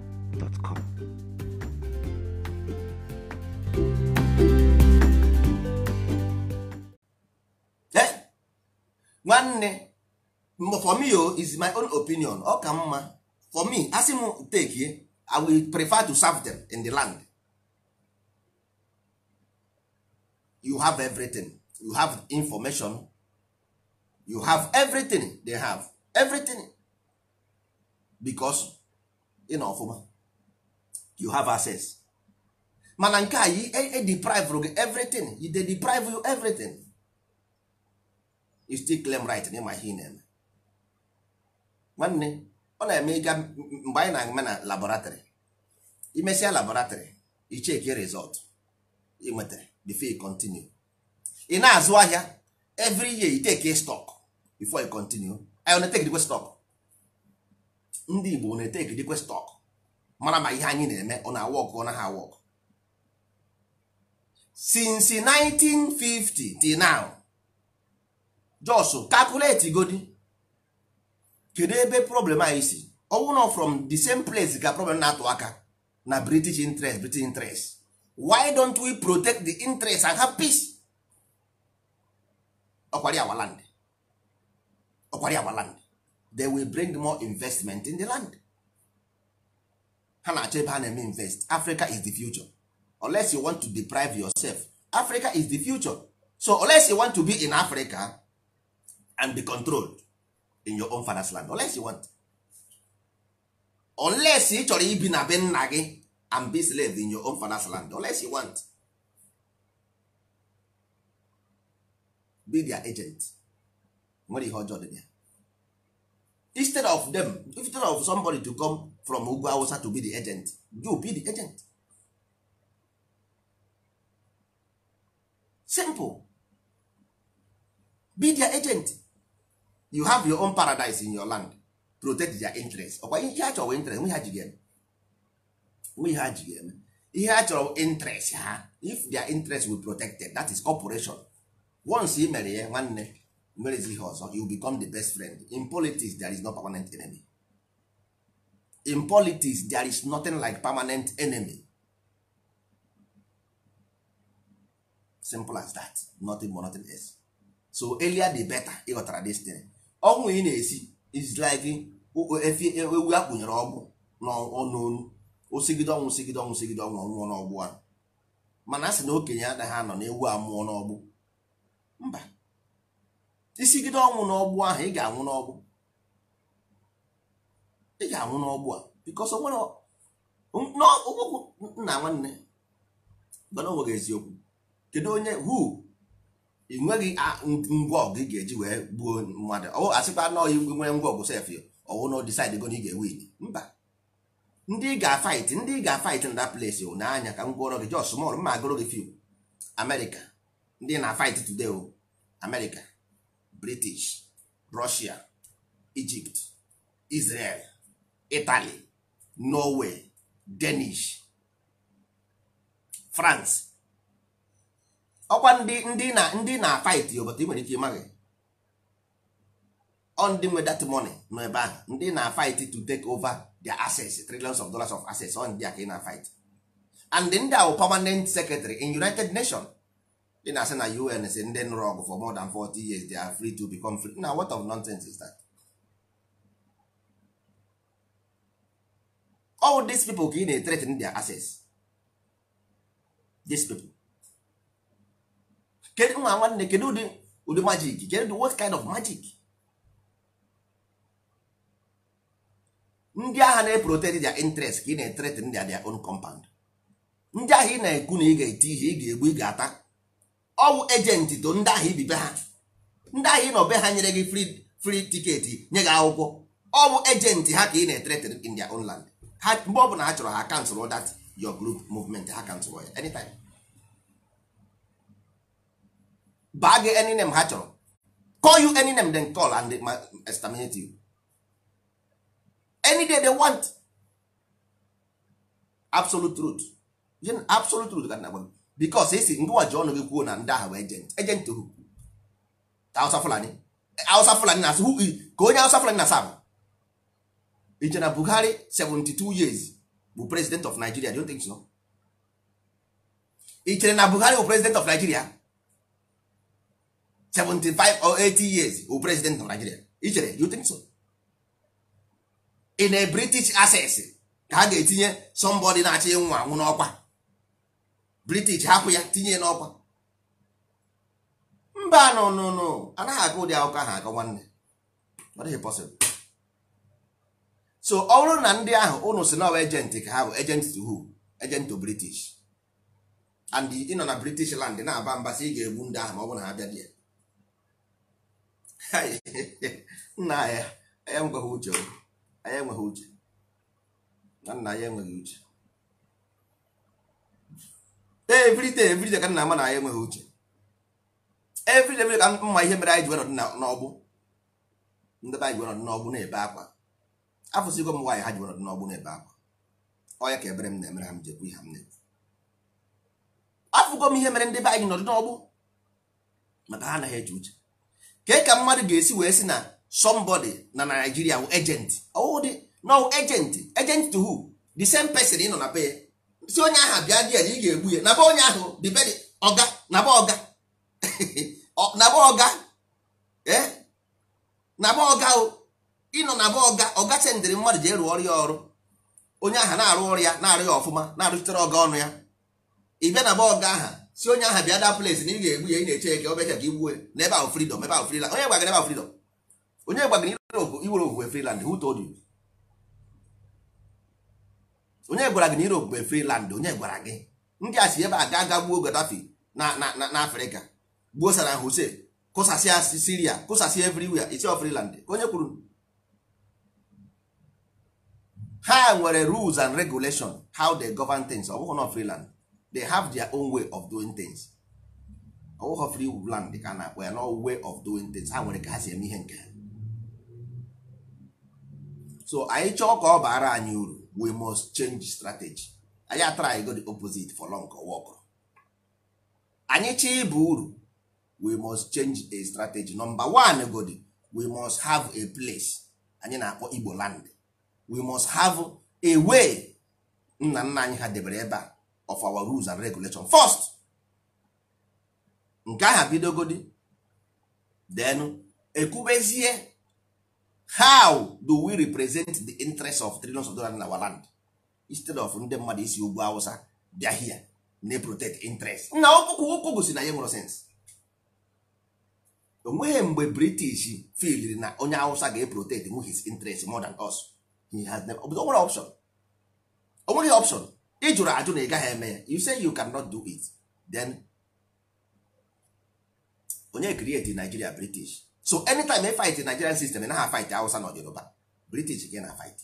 gmail.com. nwanne for me o oh, is my own opinion ọ ka mma for me asị m take i will prefer to serve them in the land you have everything you have information you have everything they have everything because ị na ọfụma you have access mana nke a yi e, e deprive gị everything you dey deprive you everything you still claim right na ịma ihe ị na-eme nwanne ọ na-eme ịga mgbe anyị na-eme na laboratory imesịa laboratory icheki result ị nwetara before you continue ị na-azụ ahịa every year you take stock before you continue I na-etekidikwe stock ndị Igbo na-etekidikwe stock mara ma ihe anyị na-eme ọ na-awọkụ ọ naghị awọkụ since 1950 till now jos calculate godi kedu ebe problem anyị si ọnwụ from the same place ka problem na-atụ aka na british interest british interest why don't we protect the interest and have peace ọkwari our land ọkwari our land they will bring more investment in the land ha na-achọ ebe ha na-eme invest Africa is the future unless you want to deprive yourself Africa is the future so unless you want to be in Africa and be controlled in your own father's land unless you want unless ị chọrọ ibi na be nna gị and be slave in your own father's land unless you want be their agent nwere ihe ọjọọ dị ya instead of them instead of somebody to come from ugwu awụsa to be the agent you be the agent simple be their agent you have your own paradise in your land protect their interest ọkwa ihe a interest nwe ha ji ga nwe ha ihe a interest ha if their interest will protected that is operation once ị mere ya nwanne werezi ihe ọzọ you become the best friend in politics there is no permanent enemy in politics there is nothing like permanent enemy simple as that nothing more nothing else so earlier the better ịghọtara destiny ọnwụ ị na-esi is like efi e, ewu akpụnyere ọgwụ n'ọnụonu osigide ọnwụ sigide ọnwụ sigide ọnwụ ọnwụọ n'ọgbụ ahụ mana a sị na okenye anaghị anọ na ewu amụọ n'ọgbụ mba isigide ọnwụ n'ọgbụ ahụ ị ga-anwụ n'ọgbụ ị ga-anwụ n'ọgbụ a bikos nna nwanne mana o nweghị eziokwu kedu onye hu ị nweghị ngwa ọgụ ị ga-eji wee gbuo mmadụ ọ asịkwa na ọyị nwere ngwa ọgụ sef ọwụ na disaid go na ị ga-ewin mba ndị ị ga-afait ndị ị ga-afait na ples n'anya ka m gwọrọ gị jos mọl mma agụrụ gị fiw amerịka ndị na-afait tude o amerịka british russia egypt israel italy norway danish france ọkwa ndị ndị na ndị na fight yo but ị nwere ike ịmaghị on ndị nwe that money nọ ebe ahụ ndị na fight to take over their assets trillions of dollars of assets on ndị a ka ị na fight and ndị a permanent secretary in united nations ị na-asị na UN si ndị nụrụ ọgụ for more than 40 years they are free to become free na what of nonsense is that? all these people ka ị na-etretin their access these people kedu nwa nwanne kedu ụdị ụdị magic kedu what kind of magic ndị agha na-eprotect their interest ka ị na-etretin their their own compound ndị agha ị na-ekwu na ị ga-eti ihe ị ga-egbu ị ga-ata ọwụ ejenti to ndị ahụ ibibe ha ndị ahịa ị nọ be ha nyere gị fri tiketi nye gị akwụkwọ ọwụ ejenti ha ka ị na-etere in their own land ha mgbe ọ bụla ha chọrọ ha kansụl dat your group movement ha kansụl ya anytime baa gị any name ha chọrọ call you any name then call and exterminate you any day they want absolute truth absolute truth ka na-agwa because esi ndị nwa ji ọnụ gị kwuo na ndị ahụ bụ ejent ejent hu Hausa Fulani eh, Hausa Fulani na-asụ ka onye Hausa Fulani na-asa bụ iche na Buhari 72 years bụ president of Nigeria don't think so ichere na Buhari bụ president of Nigeria 75 or 80 years bụ president of Nigeria ichere you think so in a British access ka ha ga-etinye somebody na-achị nwa anwụ n'ọkwa british hapụ ya tinye n'ọkwa mba nọ nụnụ anaghị aga ụdị akwụkwọ ahụ akọ nwanne ọ dịghị possible so ọ bụrụ na ndị ahụ ụnụ si nọwa ejenti ka ha bụ ejenti to who ejent to british and ịnọ na british land na-aba mba sị ị ga-egbu ndị ahụ ma ọ bụ na ha bịa dị ya nna ya anya enweghị uche anya enweghị uche na nna ya enweghị uche everyday everyday ka nna ama na anyị enweghị uche everyday everyday ka mma ihe mere anyị ji nọdụ n'ọgbụ ndị anyị ji nọdụ n'ọgbụ na-ebe akwa afụsigo m nwaanyị ha ji nọdụ n'ọgbụ na-ebe akwa ọya ka ebere m na-emere ha m jekwu ihe m na-ekwu afụgo m ihe mere ndị be anyị nọdụ n'ọgbụ maka ha anaghị eji uche ka ka mmadụ ga-esi wee si na somebody na Nigeria wụ agent ọwụdị no agent ejenti to who the same pesin ị nọ na be ya si onye ahụ bịa dị ya na ị ga-egbu ya naba onye ahụ dibedi ọga naba ọga [laughs] naba ọga e? naba ọga ịnọ naba ọga ọga sendịrị mmadụ ji rụọ ọrụ ya ọrụ onye ahụ na-arụ ọrụ ya na-arụ ya ọfụma na-arụchitere ọga ọnụ ya ị bịa naba ọga aha si onye ahụ bịa daa plesi na ị ga-egbu ya ị na-eche ya ka ọ bịacha ka igbuo ya na ebe ahụ fridọm ebe ahụ friland onye gwagara ebe ahụ fridọm onye gwagara iwere owe friland who told onye gwara gị na Europe bụ friland onye gwara gị ndị a si ebe a ga aga gbuo Gaddafi na na Afrịka gbuo Saddam Hussein kụsasịa Syria kụsasịa everywhere isi freeland ka onye kwuru ha nwere rules and regulation how they govern things ọ bụghị na friland they have their own way of doing things ọ bụghị land ka na-akpọ ya na way of doing things ha nwere ka ha si eme ihe nke ha so anyị chọọ ka ọ baara anyị uru we must change strategy anyị try go the opposite for long work anyị chọọ ịba uru we must change a strategy number one godi we must have a place anyị na-akpọ igbo land we must have a way nna nna anyị ha debere ebe a of our rules and regulation first nke aha bidogodi denu ekwubezie how do we represent the interest of trillions of dollars in our land instead of ndị mmadụ isi ugwu awụsa bịa hia na protect interest na ụkwụ gosi na ya nwere sens onweghị mgbe british filiri na onye awụsa ga-eprotect nwe his interest more than us he has never onwere option onweghị option ị jụrụ ajụ na ị gaghị eme ya you say you cannot do it then onye create nigeria british so anytime e fight nigerian system na ha fight hausa na yoruba british gị na fight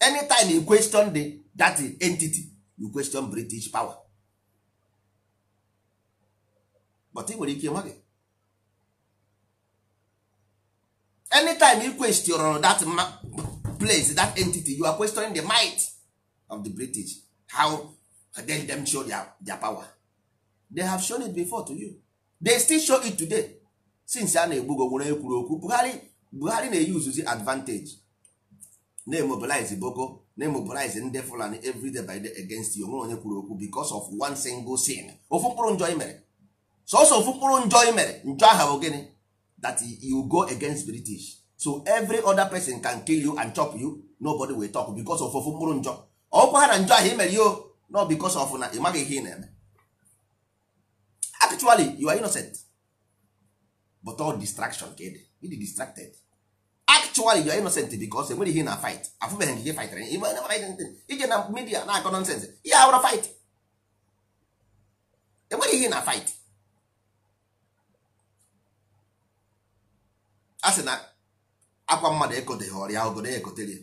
anytime you question the that entity you question british power but ị nwere ike nwa gị anytime you question that place that entity you are questioning the might of the british how then them show their, their power they have shown it before to you they still show it today since a na-egbu go nwere ekwuru okwu Buhari Buhari na-eyuzuzi advantage na-emobilize boko na-emobilize ndị Fulani everyday by day against you onwe onye kwuru okwu because of one single sin ofu mkpụrụ njọ mere sọsọ ofu mkpụrụ njọ mere njọ aha bụ gịnị that you go against British so every other person can kill you and chop you nobody will talk because of ofu mkpụrụ njọ ọkwa ha na njọ aha i mere yo no because of na ị maghị ihe ị na-eme actually you are innocent but all distraction ka ịdị dị distracted actually you are innocent because enwere ihe na fight afụbeghị nke ihe fightara ije na media na-akọ nonsense ihe awụrụ fight enwere ihe na fight a sị na akwa mmadụ ekoteghị ọrịa obodo ya ekotere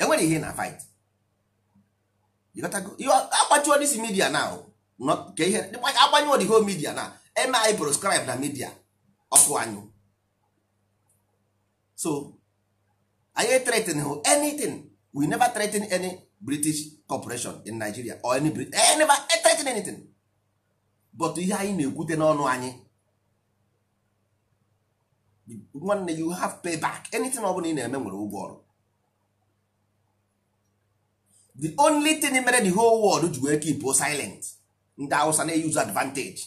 enwere ihe na fight akpachuo dis media na agbanyụọ the whole media na eme anyị proscribe na midia ọkụ anyụ so anyị threaten hụ anything we never threaten any british corporation in nigeria or any Brit I eh, never eh, threaten anything but ihe anyị na egwute n'ọnụ anyị nwanne you have pay back anything ọ bụla ị na-eme nwere ụgwọ ọrụ the only thing mere the whole world ji wee keep silent ndị hausa na-eyuzu advantage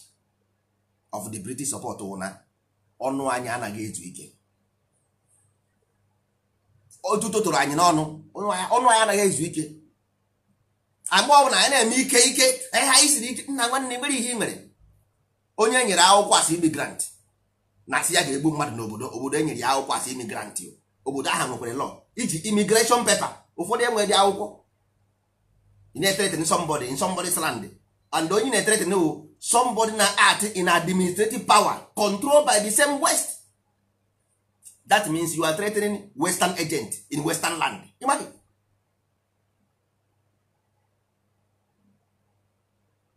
of the british support ụna ọnụ anyị anaghị ezu ike otu tụrụ anyị n'ọnụ ọnụ anyị anaghị ezu ike agba ọbụla anyị na-eme ike ike anyị ha isiri ike nna nwanne mere ihe nwere mere onye nyere akwụkwọ asị imigrant na asị ya ga-egbu mmadụ n'obodo obodo enyere ya akwụkwọ asị imigrant obodo ahụ nwekwere lọ iji imigreshọn pepa ụfọdụ enweghị dị akwụkwọ ị na-etere ete slandị and onye na-etrete no somebody na art in administrative power controlled by the same west that means you are threatening western agent in western land Imagine.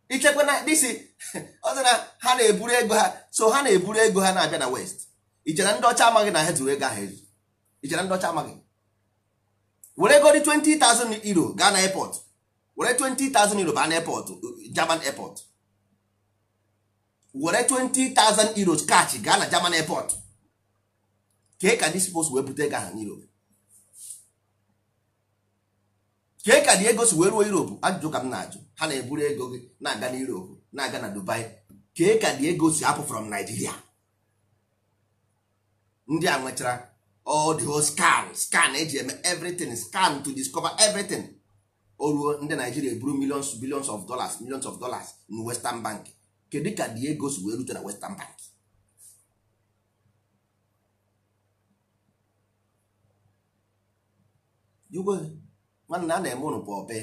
ichekwa na disi [laughs] ọzọ na ha na-eburu ego ha so ha na-eburu ego ha na-abịa na west ichere ndị ọcha amaghị na ha zuru ego ahụ ezu ichere ndị ọcha amaghị were ego dị 20,000 euro gaa na airport were 20,000 euro ban airport German airport were 20,000 euros kachi gaa na German airport kee ka ndị spos wee bute ego ha n'Europe ka ka dị ego si wee ruo Europe ajụjụ ka m na-ajụ ha na-eburu ego gị na-aga na Europe na-aga na Dubai kee ka dị ego si apụ from Nigeria ndị a nwechara all the whole scan scan eji eme everything scan to discover everything o ruo ndị naijiria eburu millions billions of dollars millions of dollars na western bank kedu ka dị ego si wee rute na western bank nwanne a na-eme ụnụ bụ ọbe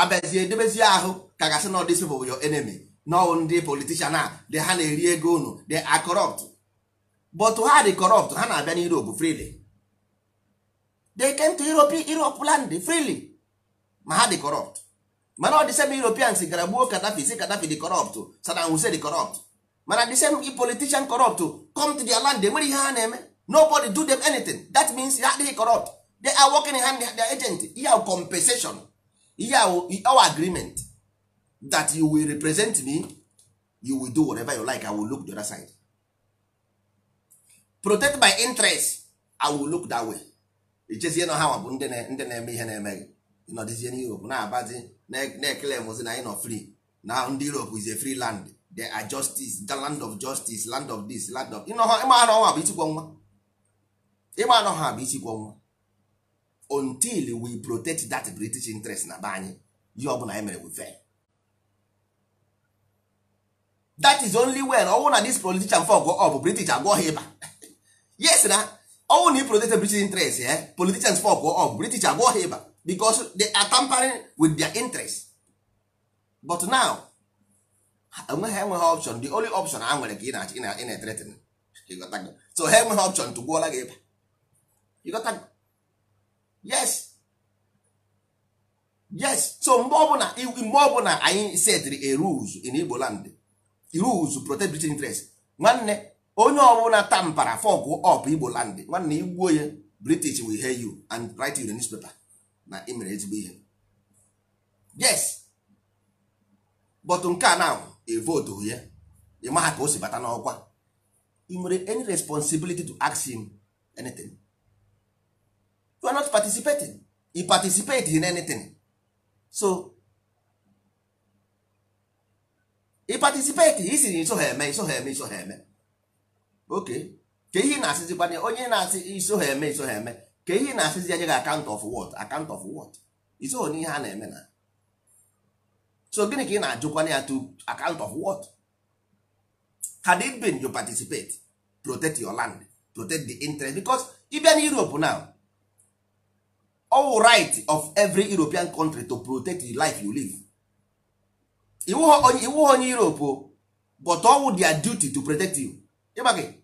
abịazie edebezie ahụ ka gasị na ọdịsị bụ your enemy nọọ ndị politishan a dị ha na-eri ego unu dị a corrupt but ha dị corrupt ha na-abịa n'Europe freely they came to Europe Europe land freely ma ha dị corrupt mana ọ dị same Europeans gara gbuo Gaddafi si Gaddafi dị corrupt Saddam Hussein dị corrupt mana dị same politician corrupt come to their land enwere ihe ha na-eme nobody do them anything that means ha adịghị corrupt they are working hand their agent ihe ahụ compensation ihe our agreement that you will represent me you will do whatever you like I will look the other side protect my interest I will look that way ichezie na ha bụ ndị na-eme ihe na-emeghị nọdịzie n'europe na-abazi na-ekele mozi na anyị e, nọ free na ndị europe is a free land they are justice the land of justice land of this land of ịma anọ ha bụ itikwo nwa ịma anọ ha bụ itikwo nwa until we protect that british interest na be anyị ihe ọbụla anyị e mere we fail that is only when ọnwụ na this politician fog ọ bụ british agwọ ha ịba [laughs] yes na ọnwụ na ị protect british interest eh politicians fog ọ bụ british agwọ ha ịba because they are tampering with their interest but now enweghị enweghị option the only option ha nwere ka ị na-etretin so ha enweghị option tụgbuola gị ịba yes yes so mgbe ọbụla mgbe ọbụla anyị setiri a rules in Igbo land rules protect British interest nwanne onye ọbụla tampara fọgụ ọp Igbo land nwanne igbuo ya British will hear you and write you the newspaper na ị mere ezigbo ihe yes but nke a na evotu ya ị maha ka o si bata n'ọkwa ị nwere any responsibility to ask him anything you are not participating he participate in anything so ị participate siri iso ha eme iso ha eme iso ha eme ok ka ihe ị na-asịzikwa onye na-asị iso ha eme iso ha eme ka ihe na-asịzi anya gị akant of what akant of what iso n'ihe a na-eme na so gịnị ka ị na-ajụkwana ya to account of what had it been you participate protect your land protect the interest because ịbịa na Europe now all right of every European country to protect the life you live iwu onye Europe but ọwụ their duty to protect you ịgba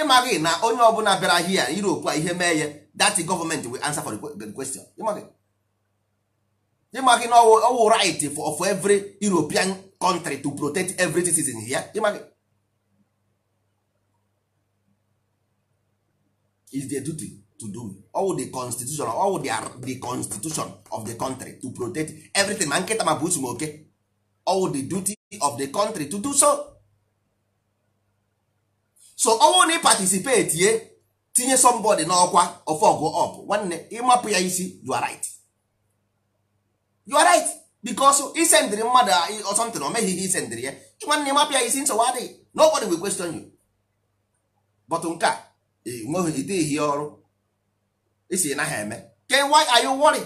ịmaghị na onye ọbụla bịara hia Europe a ihe mee ya that government will answer for the question ịmaghị na ọwụ right for of every European country to protect every citizen here ịmaghị is their duty to do all the constitution ọwụ the constitution of the country to protect everything ma nkịta ma bụ usumoke all the duty of the country to do so so ọnwụ na ị participate ye tinye somebody n'ọkwa ofọgụ up nwanne ịmapụ ya isi you are right you are right because isendịrị mmadụ ọsọntịrị na meghị ihe isendịrị ya nwanne ịmapụ ya isi nsogbu adịghị nobody will question you but nke a nweghị ide ihe ọrụ isi na ha eme then why are you worry.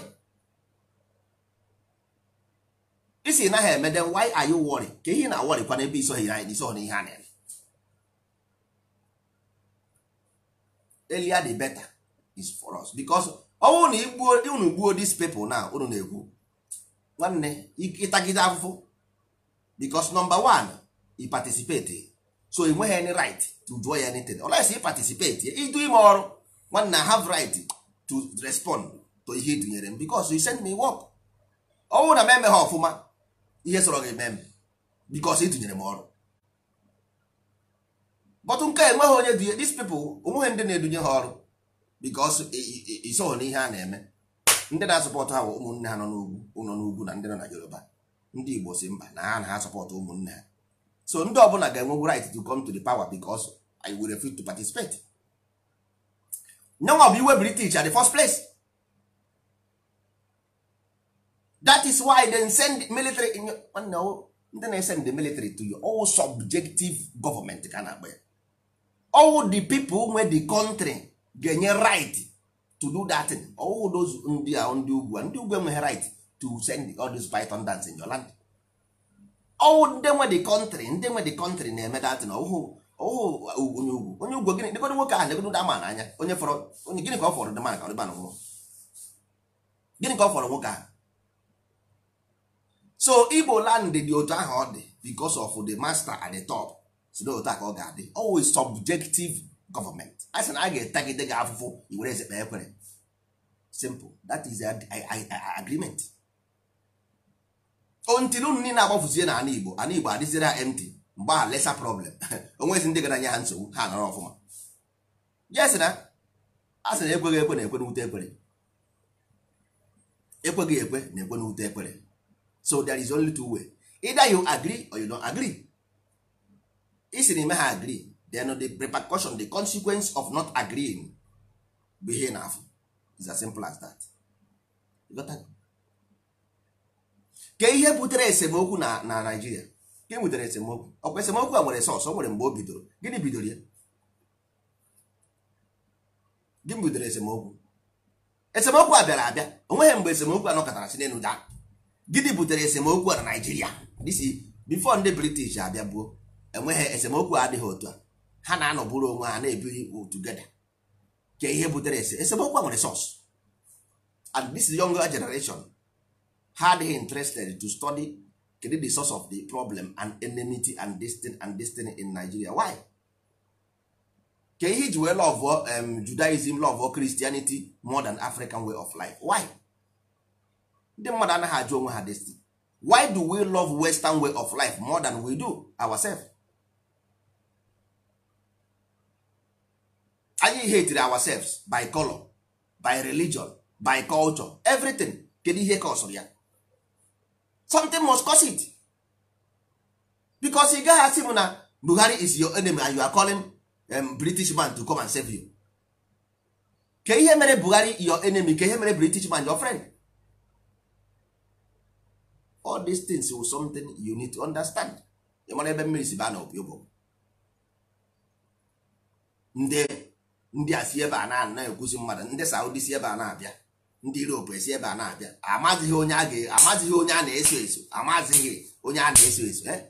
isi na ha eme then why are you worry ka ihe na-awọrịkwa n'ebe iso ha ihe a na-eme earlier the better is for us because na unu gbuo this people now unu na egwu nwanne ịtagide afụfụ because nọmba one i so ị ha any right to do anything unless i participate ịdụ ime ọrụ nwanne have right to respond to ihe dụnyere m you send me work na m emeghị ọfụma ihe sọrọ gị eme m m ọrụ but nke enweghị onye dị these people onweghị ndị na-edunye ha ọrụ because isoghị na ihe a na-eme ndị na-asọpọtụ ha bụ ụmụnne ha nọ n'ugwu nọ n'ugwu na ndị nọ na Yoruba ndị Igbo si mba na ha na ha sọpọtụ ụmụnne ha so ndị ọbụla ga-enwegwu right to come to the power because I were fit to participate nyanwa bụ iwe British at the first place that is why they send military ndị na-esend the military to your all subjective government ka na-akpa ya all the people nwe the country ga-enye right to do that thing all those ndị a ndị ugwu ndị ugwu enweghị right to send all these python dance in your land all ndị nwe the country ndị nwe the country na-eme that thing ọhụụ ọhụụ onye ugwu onye ugwu gịnị dịgodo nwoke ahụ legodo ama n'anya onye fọrọ onye gịnị ka ọ fọrọ dịma ka ọ dịba nwụọ gịnị ka ọ fọrọ nwoke ahụ so igbo land dị otu ahụ ọ dị because of the master at the top si a ka ọ ga-adị always subjective government a sị na a ga-etagide gị afụfụ iwere ezekpe ekwere simple dat is a, a, a, a agreement ontinu nni na-agbafuzie na ana igbo ana igbo adịziere ha empty mgbe a lesa problem [laughs] onwezi ndị gara nye ha nsogbu ha nọrọ ọfụma yes na a sị na ekweghị ekwe na ekwe n'ute ekwere ekweghị ekwe na ekwe n'ute ekwere so there is only two way either you agree or you don't agree isiri me ha agree then the repercussion the consequence of not agreeing bụ ihe na-afụ is as simple as that ke ihe butere esemokwu na na Naịjirịa ke butere esemokwu ọkwa esemokwu a nwere sọsọ nwere mgbe o bidoro gịnị bidoro ya gịnị bidoro esemokwu esemokwu a bịara abịa onweghị mgbe esemokwu a nọkọtara si n'elu daa gịnị butere esemokwu a na nigeria disi bifo ndị British abịa gbuo enweghị esemokwu adịghị otu a ha na-anọbụrụ onwe ha na-ebiri together ka ihe butere ese esemokwu nwere sos and this younger generation ha adịghị interested to study kedu the source of the problem and enmity and destiny and destiny in Nigeria why ka ihe iji wee love um, Judaism love Christianity more than African way of life why ndị mmadụ anaghị ajụ onwe ha destiny why do we love Western way of life more than we do ourselves? anyị hatere ourselves by color by religion by culture everything kedu ihe kọsụrụ ya something must cause it because ị gaghị asị m na Buhari is your enemy and you are calling um, British man to come and save you ke ihe mere Buhari your enemy ke ihe mere British man your friend all these things will something you need to understand ị mara ebe mmiri si baa na obi ụbọ ndị ndị a si ebe a na ekwuzi mmadụ ndị saudi si ebe a na-abịa ndị europe esi ebe a na-abịa amazighị onye a ga-amazighị onye a na-eso eso amazighị onye a na-eso eso eh?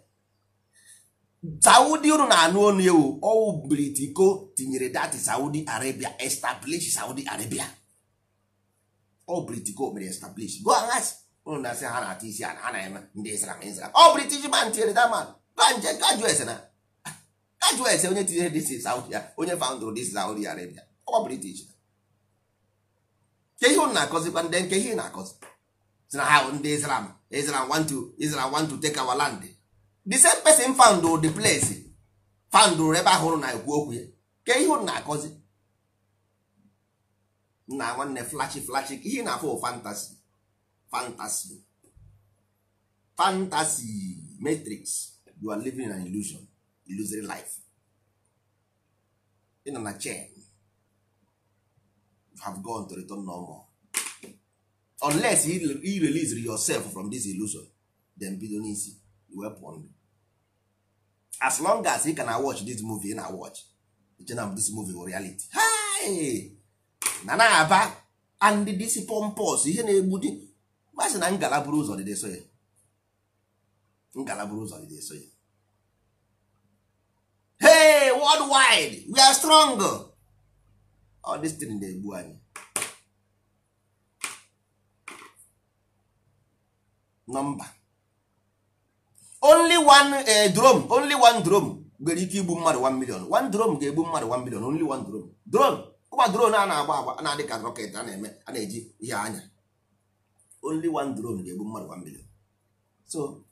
saudi unu na-anụ onu ewu ọwụ britiko tinyere dati saudi arabia establish saudi arabia ọ britiko mere establish go aghas unu na-asị ha na-ata isi a na ha na-eme ndị islam islam ọ british man tinyere daman ga nje gajuo ese na ajụọ ese onye tinyere dis saudi ya onye foundụrụ dis saudi arabia ọkwa british ke ihe ụnụ na-akọzikwa ndị nke ihe na-akọzi si na ha ndị islam islam want to islam want to take our land the same person found the place found ebe ahụrụ na ekwu okwu ya ke ihe na-akọzi na nwanne flashi flashi ihe na afọ fantasy fantasy fantasy matrix you are living in an illusion illusory life ị nọ na chain have gone to return no normal unless you release yourself from this illusion then bido n'isi wee ndụ as long as you can watch this movie na watch chenam this movie reality na na-aba and this pompous ihe na-egbu di masị na ngala buru ụzọ dịde so ya ngala buru ụzọ dịde so ya hey worldwide we are strong all oh, this thing na-egbu anyị nọmba only one uh, drone only one drone nwere ike igbu mmadụ 1 million one drone ga-egbu mmadụ 1 million only one drone drone ụkwa drone a na-agba agba na-adị ka rocket a na-eme a na-eji ihe anya only one drone ga-egbu mmadụ 1 million so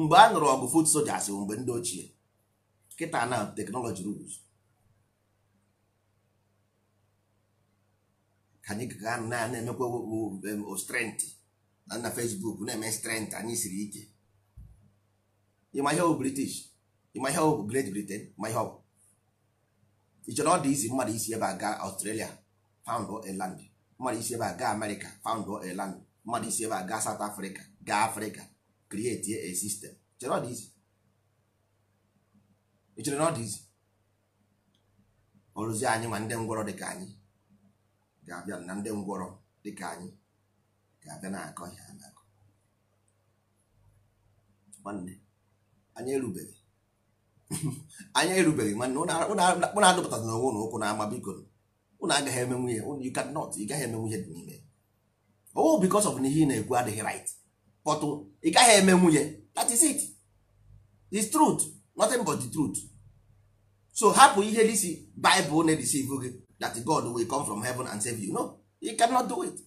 mgbe a nụrụ ọgụ fut sojas mgbe ndị ochie kịta na teknọlọji rules ka anyị ga na-emekwa strength na na Facebook na-eme strength anyị siri ike ịma ihe ọ bụ British ịma ihe ọ bụ Great Britain ma ihe ọ bụ ị chọrọ ọ dị izi mmadụ isi ebe a gaa Australia found a land mmadụ isi ebe a gaa America found a land mmadụ isi ebe a gaa South Africa gaa Africa create a system chere ọ dị izi ị na ọ dị izi ọrụzi anyị ma ndị ngwọrọ dịka anyị ga-abịa na ndị ngwọrọ dịka anyị ga-abịa na-akọ ihe a na-akọ nwanne anyị erubeghị [laughs] anyị erubeghị nwanne ụnụ adụpụtara n'onwe ụlọ ụkwụ na-ama biko ụnụ agaghị eme nwunye ụnụ you cannot ị gaghị eme nwunye dị n'ime o oh, bikos of na ihe ị na-ekwu adịghị right but oh, ị gaghị eme nwunye that is it the truth nothing but the truth so hapụ ihe disi bible na say gị that god will come from heaven and save you no you cannot do it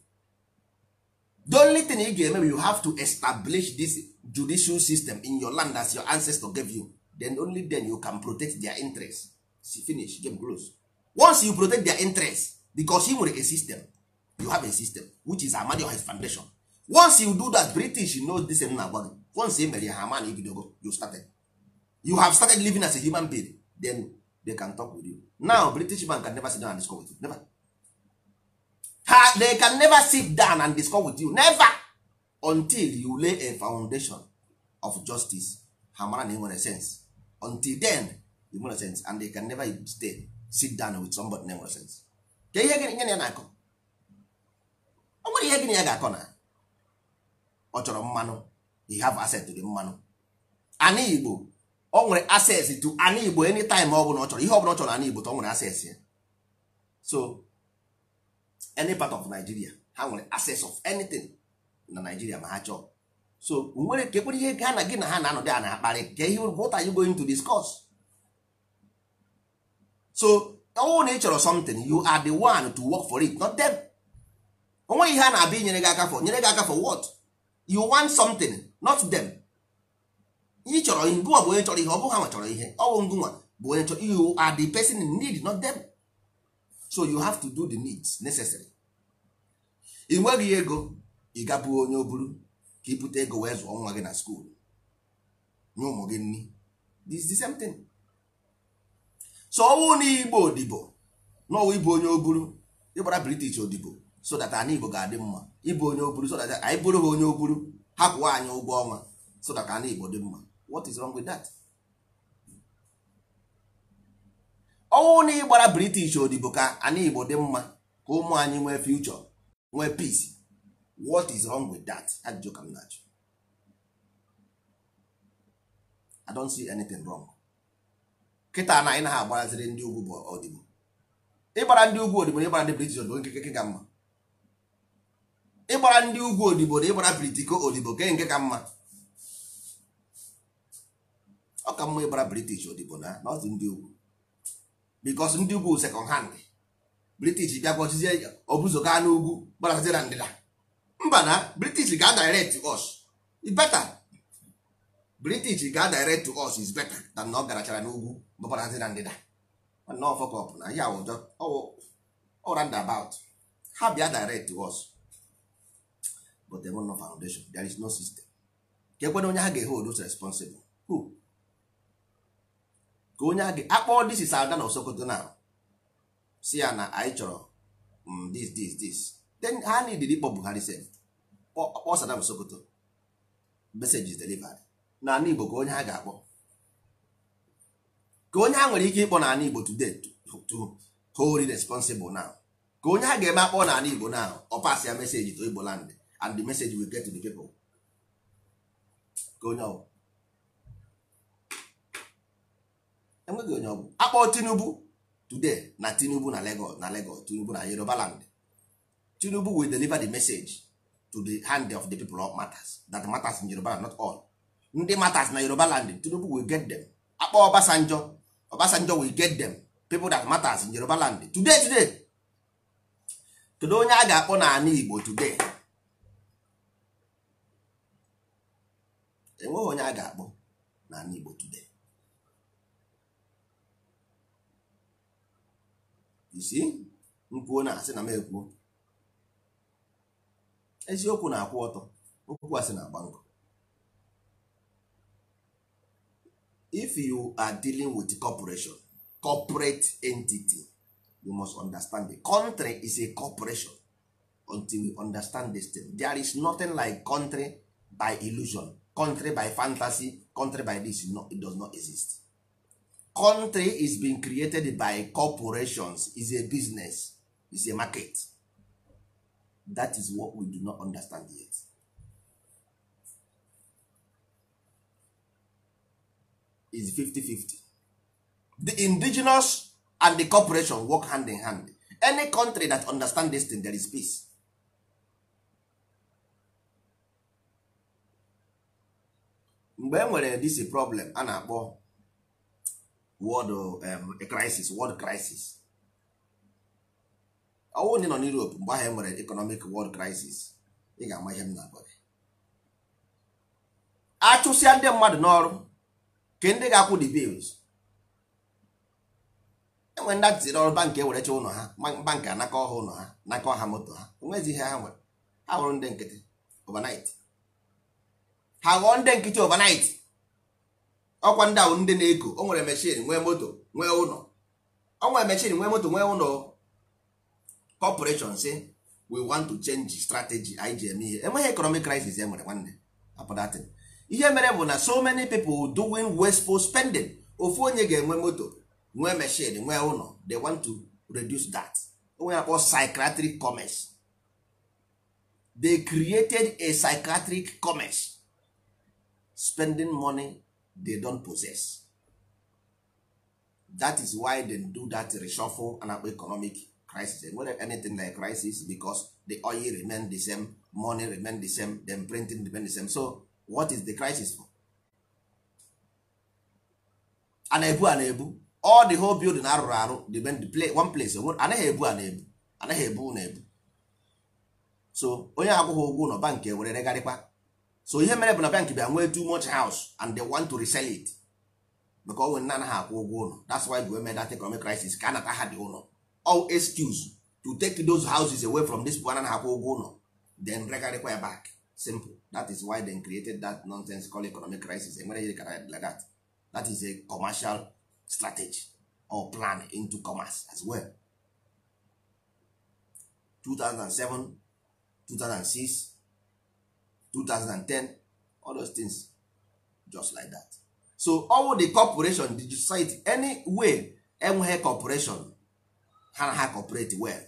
the only thing ị ga-eme you have to establish this judicial system in your land as your ancestor gave you then only then you can protect their interest See, finish game close once you protect their interest because he nwere a system you have a system which is amadiohis foundation once you do that british know this na agwa gị once e mere ya ha ama na ibidogo you started you have started living as a human being then they can talk with you now british man can never sit down and discuss with you never ha they can never sit down and discuss with you never until you lay a foundation of justice ha mara na nwere sense until then you nwere sense and they can never stay sit down with somebody na nwere sense ka ihe gịnị ya na-akọ ọ nwere ihe gịnị ya ga-akọ na ọ chọrọ mmanụ you have access to the mmanụ Anị igbo ọ nwere access to ana igbo anytime ọ bụla ọ chọrọ ihe ọ bụla ọ chọrọ anị igbo ọ nwere access ya so any part of Nigeria ha nwere access of anything na Nigeria ma ha chọọ so nwere kekwere ihe ga na gị na ha na-anọdị a na-akparị ka ihe what are you going to discuss so ọnwụ na ị chọrọ something you are the one to work for it not them onweghị ihe a na-abịa inyere gị aka for nyere gị aka for what you want something not them ị chọrọ ihe ọ bụ onye chọrọ ihe ọ bụghị ha chọrọ ihe ọ bụ ngụnwa bụ onye chọrọ you are the person in need not them so you have to do the needs necessary ị nweghị ego ị gabụ onye oburu ka ibute ego wee zụọ nwa gị na skuul nye ụmụ gị nri this is the same thing so ọnwụ na igbo odibo ịbụ onye oburu ịgbara british odibo so that anyị Igbo ga-adị mma ịbụ onye oburu so that anyị bụrụ ha onye oburu hapụ anyị ụgwọ ọnwa so that anyị Igbo dị mma what is wrong with that? ọnwụ na ịgbara British odibo ka anyị Igbo dị mma ka ụmụ anyị nwee future nwee peace what is wrong with that? ajụjụ ka m na-ajụ I don't see anything wrong kịta na anyị na ha agbaraziri ndị ugwu bụ ọdịbo ịgbara ndị ugwu odibo na ịgbara ndị British odibo nkeke ga mma ịgbara ndị ugwu odibo na ịgbara britiko odibo ke nke ka mma ọ ka mma ịgbara british odibo na nọọsụ ndị ugwu bikos ndị ugwu sekọnd hand british bịakwa ọchịzie obuzoga n'ugwu gbarazie na ndịda mba na british ga-adirect us beta british ga direct to us is better than na ọ garachara n'ugwu gbabarazi na ndịda mana ọfọkọp na ya ọra ndabout ha bịa direct to us but there no foundation there is no system ka ekwena onye ha ga-ehold us responsible who ka onye ha ga akpọ this is ada na osokoto na si ya na anyị chọrọ mm, this this this then ha needed ịkpọ Buhari sef kpọ Saddam Sokoto message is na n'ala Igbo ka onye ha ga-akpọ ka onye ha nwere ike ịkpọ n'ala Igbo today to hold responsible now ka onye ha ga-eme akpọ n'ala Igbo now ọ pas ya meseji to Igbo land and the message will get to the people onye ọbụ enweghị onye ọbụ akpọ Tinubu today na Tinubu na Lagos na Lagos Tinubu na Yoruba land Tinubu will deliver the message to the hand of the people of matters that matters in Yoruba not all ndị matters na Yoruba land Tinubu will get them akpọ Obasanjo Obasanjo will get them people that matters in Yoruba land today today kedu onye a ga-akpọ n'ala Igbo today enweghị onye a ga-akpọ n'ala Igbo today isi nkwuo na asị na m ekwuo eziokwu na-akwụ ọtọ okwu asị na-agba nkọ if you are dealing with corporation corporate entity you must understand the country is a corporation until we understand this thing there is nothing like country by illusion country by fantasy country by this no, it does not exist country is being created by corporations is a business is a market that is what we do not understand yet is 50-50 the indigenous and the corporation work hand in hand any country that understand this thing there is peace mgbe e nwere this problem a na-akpọ world um, crisis world crisis ọwụ ndị nọ n'Europe mgbe ahụ e nwere economic world crisis ị ga-ama ihe m na-agwa gị achụsịa ndị mmadụ n'ọrụ ke ndị ga-akwụ the bills enwere ndị atịtịrị ọrụ bankị ewerecha ụlọ ha bankị anakọ ọha ụlọ ha nakọ ha moto ha onwezi ihe ha nwere ha hụrụ ndị nkịtị overnight ha ghọọ ndị nkịtị overnight ọkwa ndị ahụ ndị na-eko o nwere mechin nwee moto nwee ụlọ o nwere mechin nwee moto nwee ụlọ corporation si we want to change strategy igm ihe enweghị economic crisis e nwere nwanne apụdatin ihe mere bụ na so many people doing wasteful spending ofu onye ga-enwe moto nwee mechin nwee ụlọ they want to reduce that onwe akpọ psychiatric commerce they created a psychiatric commerce spending money they don possess that is why they do that reshuffle and akpa economic crisis and enwere anything like crisis because the oil remain the same money remain the same them printing remain the same so what is the crisis for? ana ebu ana ebu all the whole building arụrụ arụ depend one place anaghị ebu ana ebu anaghị ebu na-ebu so onye akwụghị ụgwọ ụlọ bank e were regharịkwa so ihe mere bụ na bank bịa nwee too much house and they want to resell it because onwe nna anaghị akwụ ụgwọ ụlọ that's why the women that economic crisis ka anata ha dị ụlọ all excuse to take those houses away from this people anaghị akwụ ụgwọ ụlọ then regarịkwa ya back simple that is why they created that nonsense called economic crisis enwere ihe kara like that that is a commercial strategy or plan into commerce as well 2007 2006 2010 all those things just like that so all the corporation the society any way enweghị corporation ha na ha well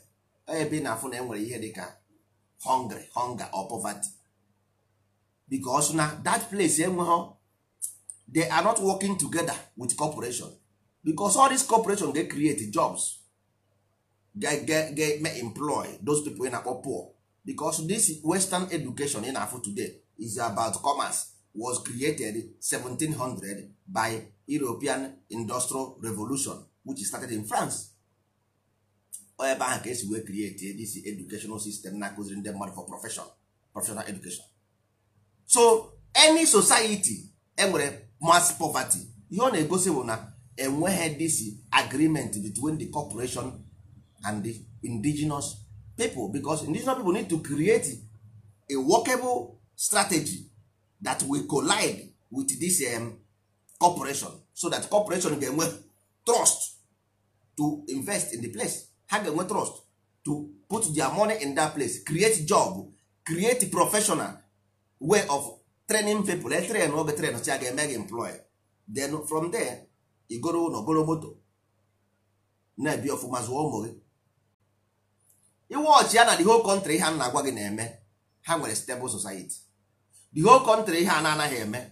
ebe na afụ na enwere ihe dịka hungry hunger or poverty because na that place enweghị they are not working together with corporation because all this corporation dey create jobs ga ga ga employ those people na-akpọ poor because this western education in afo today is about commerce was created 1700 by European Industrial Revolution which started in France ebe ahụ ka esi wee create this educational system na-akụziri ndị mmadụ for professional education so any society enwere mass poverty ihe ọ na-egosi bụ na enweghị this agreement between the corporation and the indigenous people because indigenous people need to create a workable strategy that will collide with this um, corporation so that corporation ga-enwe trust to invest in the place ha ga-enwe trust to put their money in that place create job create professional way of training people let say train si a ga-eme gị then from there igoro ụlọ goro moto na-ebi ọfụma zụọ ụmụ gị iwọchị ya na the whole country ha na-agwa gị na-eme ha nwere stable society the whole country ha na-anaghị eme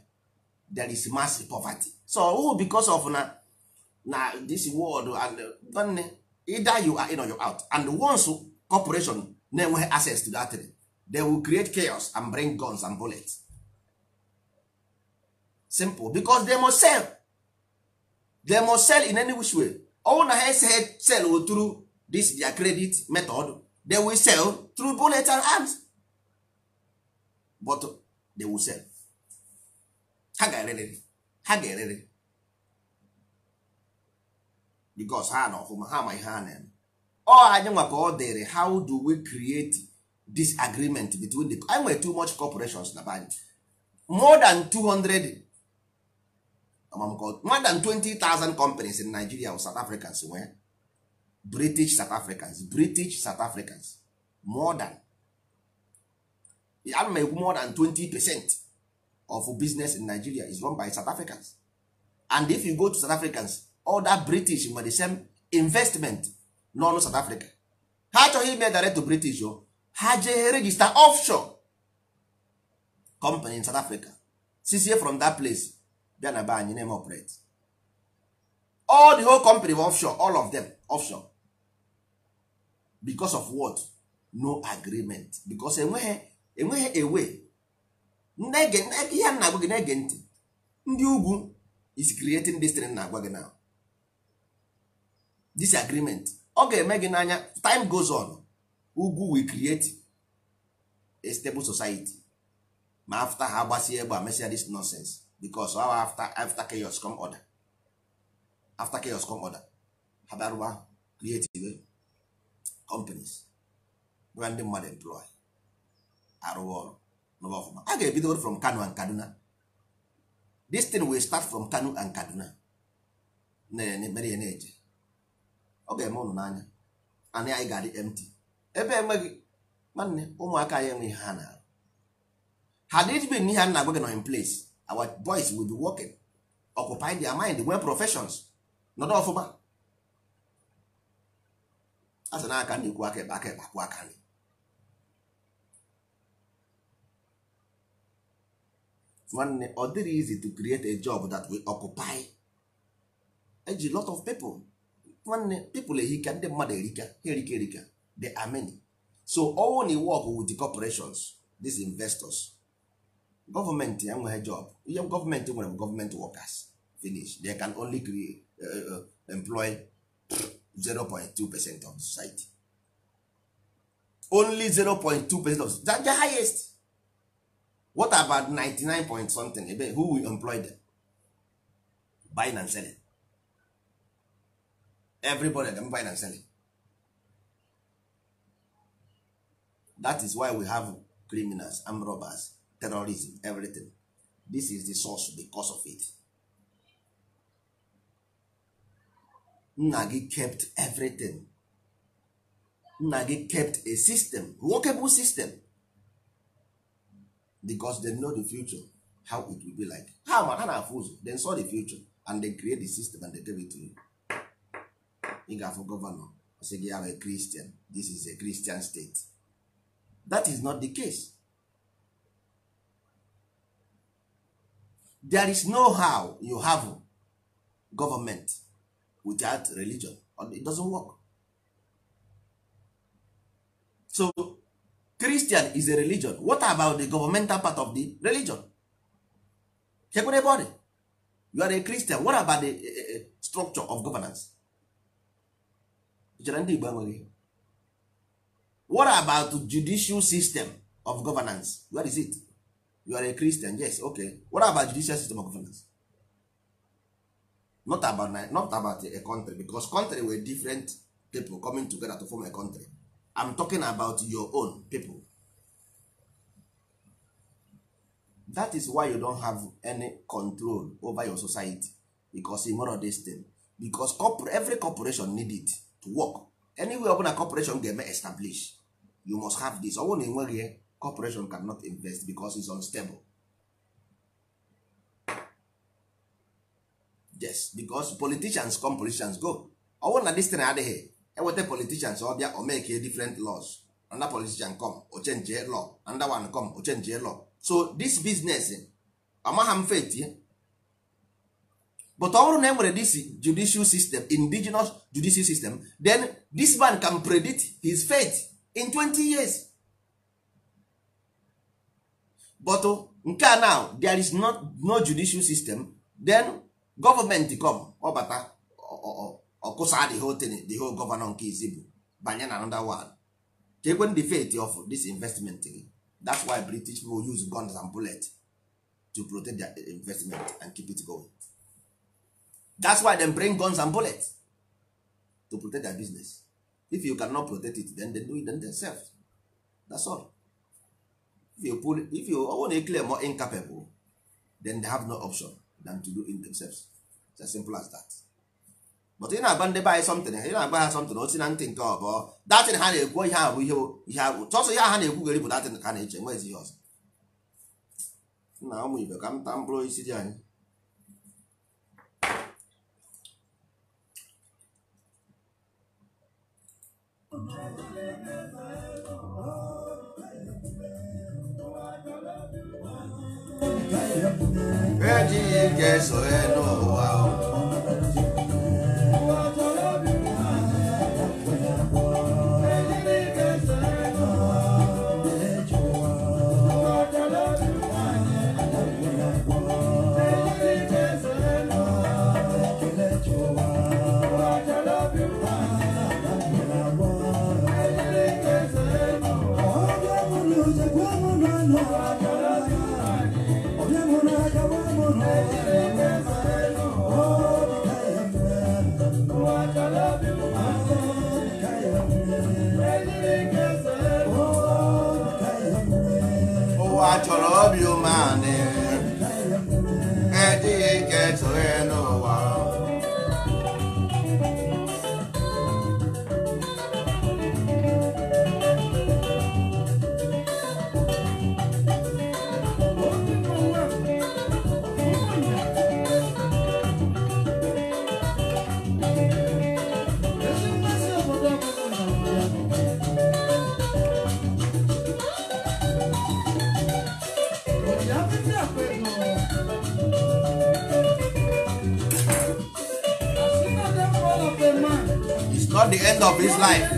there is mass poverty so oh, because of na na this world and nwanne either you are in or you out and once corporation na-enweghị access to that thing, they will create chaos and bring guns and bullets simple because they must sell they must sell in any which way ọnwụ na ha eseghị sel oturu this their credit method they will sell through bullets and arms but uh, they will sell ha ga-ererịrị ha ga-ererịrị because ha na ọfụma ha ma ihe ha na-eme ọ anyị nwa ọ dịrị how do we create this agreement between the i nwere too much corporations na banyị more than 200 more than 20,000 companies in Nigeria or South Africans nwee british south africans british south africans more than ekwu more than 20 percent of business in nigeria is run by south africans and if you go to south africans other british nwere the same investment n'ọnụ south africa ha achọghị ime direct to british o ha jee register offshore company in south africa sizie from that place bịa na be anyị na-eme operate all the whole company offshore all of them offshore because of what no agreement because enweghị enweghị ewe ihe a na-agwa gị na-ege ntị ndị ugwu is creating this thing na-agwa gị now this agreement ọ ga-eme gị n'anya time goes on ugwu we create a stable society ma after ha gbasie egbe mesia this nonsense because our after after chaos come order after chaos come order ha bịaruba create companies bụra ndị mmadụ employ arụwa ọrụ n'ụwa ọfụma a ga-ebido from Kano and Kaduna this thing will start from Kano and Kaduna mere ya na-eje ọ ga-eme ụnụ n'anya anyị anyị ga-adị empty ebe enweghị nwanne ụmụaka anyị enweghị ha na had it been ihe a na-agwa gị nọ in place our boys will be working occupy their mind nwee professions nọdụ ọfụma asị na aka na-ekwu aka ebe aka ebe akwụ aka nri nwanne ọ dịrị easy to create a job that we occupy eji lot of people nwanne people ehika ndị mmadụ erika ha erika erika they are so all na work with the corporations these investors government ya enweghị job ihe gọọmenti nwere m workers finish they can only create, uh, uh, employ 0.2 percent of society only 0.2 percent of that the highest what about 99 point something ebe who will employ them buying and selling everybody dem buying and selling that is why we have criminals armed robbers terrorism everything this is the source the cause of it nna gị kept everything nna gị kept a system workable bụ system because they know the future how it will be like ha ma ha na-afụ ụzọ saw the future and they create the system and they give it to you ị ga-afụ gọvanọ sị gị ahụ Christian this is a Christian state that is not the case there is no how you have government without religion it doesn't work so christian is a religion what about the governmental part of the religion chekwere ebe you are a christian what about the uh, structure of governance chere ndị igbo enweghị what about judicial system of governance where is it you are a christian yes okay what about judicial system of governance not about not about a country because country were different people coming together to form a country i'm talking about your own people that is why you don't have any control over your society because you of this thing because every corporation need it to work anywhere ọbụla corporation ga-eme establish you must have this ọ bụrụ na enweghị corporation cannot invest because it's unstable yes because politicians come politicians go ọ bụrụ na this thing adịghị eweta politicians ọ bịa o make different laws another politician come o change law another one come o change law so this business amagha m faith but ọ bụrụ na enwere this judicial system indigenous judicial system then this man can predict his fate in 20 years but oh, nke a now there is not, no judicial system then gọọmenti obata ọbata ọkụsa the whole thing the whole gọvanọ nke izi banye na anoda one chekwe the fate of this investment gị that's why british people use guns and bullets to protect their investment and keep it going that's why them bring guns and bullets to protect their business if you cannot protect it then they do it themselves that's all if you pull if you own a claim more incapable then they have no option than to do in themselves it's as simple as that but ị na-agba ndị be anyị something ị na-agba ha something osi na ntị nke ọbọ datin ha na-ekwu ihe a ihe ihe abụ chọsọ ihe ha na-ekwugheri bụ datin ka ha na-eche nwezi ihe ọzọ nna ụmụ ibe ka m mkpụrụ isi dị anyị Thank you. Chineke so n'ụwa ụwa chọrọ obi umeanị the end of his life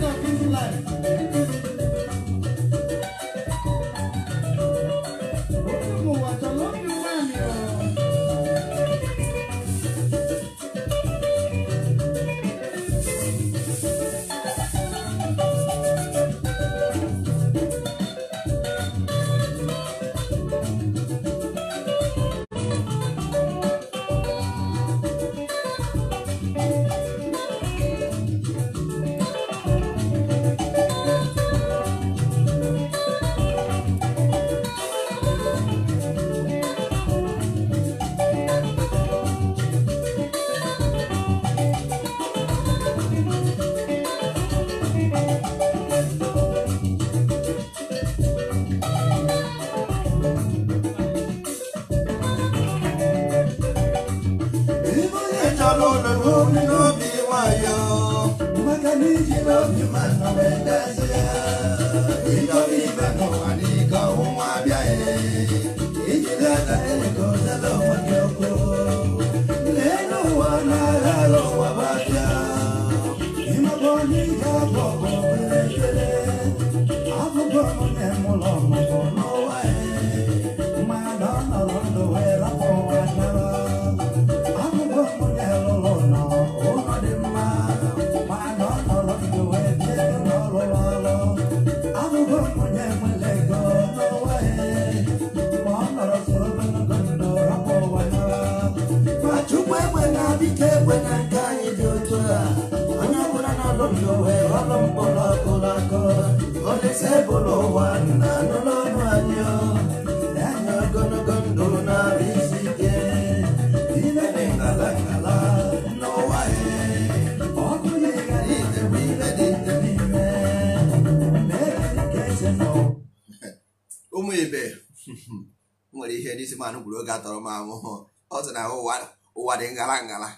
nwere ihe n'isi manụ gwuru oge atọrọ m ahụhụ ọ sị na ụwa ụwa dị ngala ngala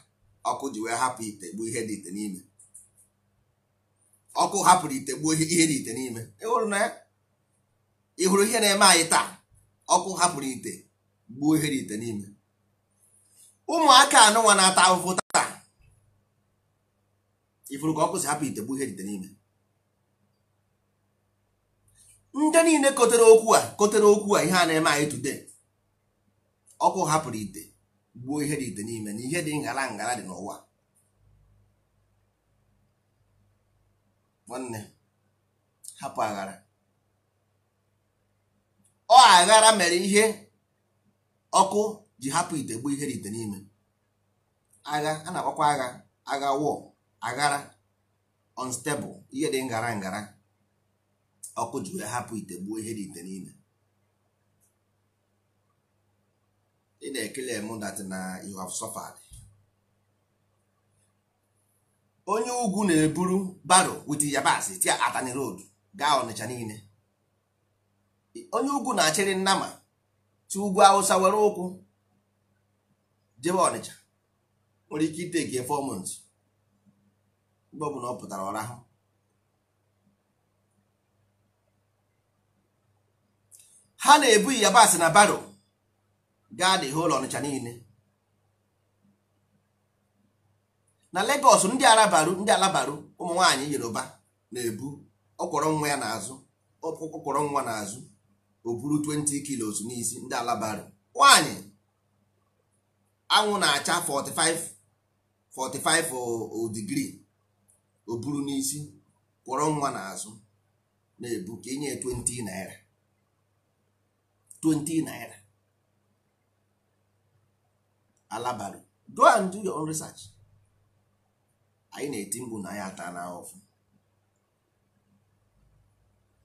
ọkụ ji wee hapụ ite gbuo ihe dị ite n'ime ọkụ hapụrụ ite gbuo ihe dị ite n'ime ịhụrụ na ya ihe na-eme anyị taa ọkụ hapụrụ ite gbuo ihe dị ite n'ime ụmụaka anụnwa na-ata ahụhụ taa ifuru ka ọkụ si hapụ ite gbuo ihe dị ite n'ime ndị niile kotere okwu a kotere okwu a ihe a na-eme anyị today ọkụ hapụrụ ite gbuo ihe dị ite n'ime na ihe dị ngara ngara dị n'ụwa nwanne hapụ aghara ọ aghara mere ihe ọkụ ji hapụ ite gbuo ihe dị ite n'ime agha a na-akpọkwa agha agha wọ aghara unstable ihe dị ngara ngara ọkụ jụrụ hapụ ite gbuo ihe dị ite niile ị na-ekele m na you have suffered onye ugwu na-eburu baro wit yabasị tia atani road gaa ọnịcha niile onye ugwu na-achịrị nnama ti ugwu awụsa were ụkwụ jebe ọnịcha nwere ike ite gi months mgbe ọ na ọ pụtara ọrahụ ha na-ebu yabasị na baro gaa dị ụlọ ọnịcha niile na Lagos ndị arabaru ndị alabaru ụmụ nwaanyị Yoruba na-ebu ọkwọrọ nwa ya n'azụ ọkwọrọ nwa n'azụ o buru 20 kilos n'isi ndị alabaru nwaanyị anwụ na-acha 45 digrii o buru n'isi kwọrọ nwa n'azụ na-ebu ka inye e 20 naira 20 naira alabari go and do your own research anyị na-eti mkpu na anyị ata na ọfụ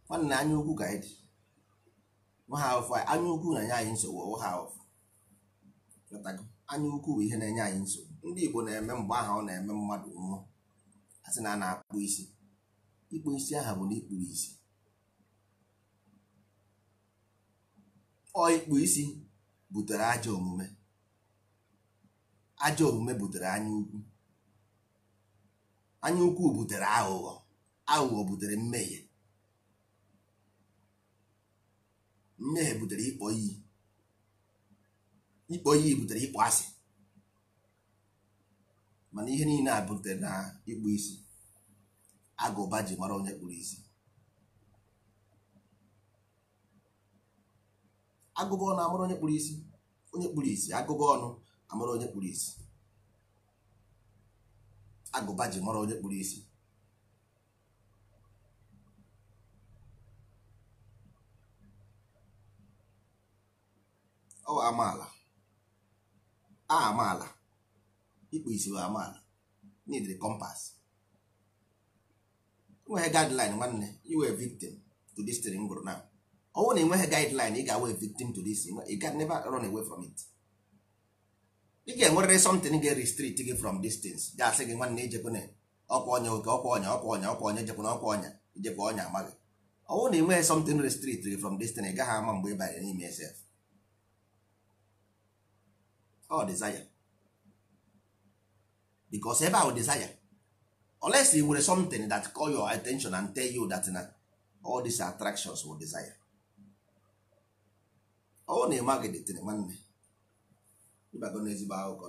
nwanne anya ukwu ka anyị dị nwaha ọfụ anya ukwu na-enye anyị nsogbu ọwụ ha ọfụ anya ukwu bụ ihe na-enye anyị nsogbu ndị Igbo na-eme mgbe aha ọ na-eme mmadụ nwụọ asị na a na-akpụ isi ikpụ isi aha bụ na ikpuru isi ikpu isi butere ajọ omume ajọ omume butere anya ukwu anya ukwu butere aghụghọ aghụghọ butere mmehie mmehie butere ịkpọ iyi ịkpọ iyi butere ịkpọ asị mana ihe niile a butere na ịkpụ isi agụba ji mara onye kpụrụ isi agụba ọnụ amụrụ onye kpụrụ isi onye kpụrụ isi agụba ọnụ amụrụ onye kpụrụ isi agụba ji mara onye kpụrụ isi ọ amaala a amaala ịkpụ isi wee amaala n'idiri kompas nwere guideline nwanne iwe victim to this thing na. ọnwụ na enweghị guideline ị ga-awe victim to this you can never run away from it ị ga-enwerịrị something ga-restrict gị from distance ga-asị gị nwanne ijekwana ọkwa ọnya oke ọkwa ọnya ọkwa ọnya ọkwa ọnya ijekwana ọkwa ọnya ijekwa ọnya amaghị ọnwụ na enweghị something restrict gị from distance ị gaghị ama mgbe ị banyere n'ime esef desire because ebe ahụ desire unless you nwere something that call your attention and tell you that na all these attractions were desire ọwụ na ịma gị dịtịrị nwanne ịbago n'ezigbo akụkọ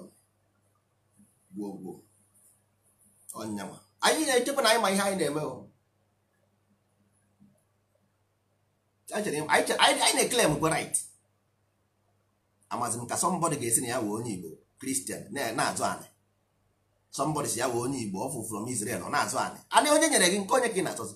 gwuo gwuo ọnyanwa anyị na-echekwa na anyị ma ihe anyị na-eme anyị na-eklem kwa right amazi m ka sọmbọdị ga-esi na ya wee onye Igbo kristian na-azụ anị sọmbọdị si ya wee onye Igbo ọ fụ from Israel ọ na-azụ anị anị onye nyere gị nke onye ka ị na-achọzi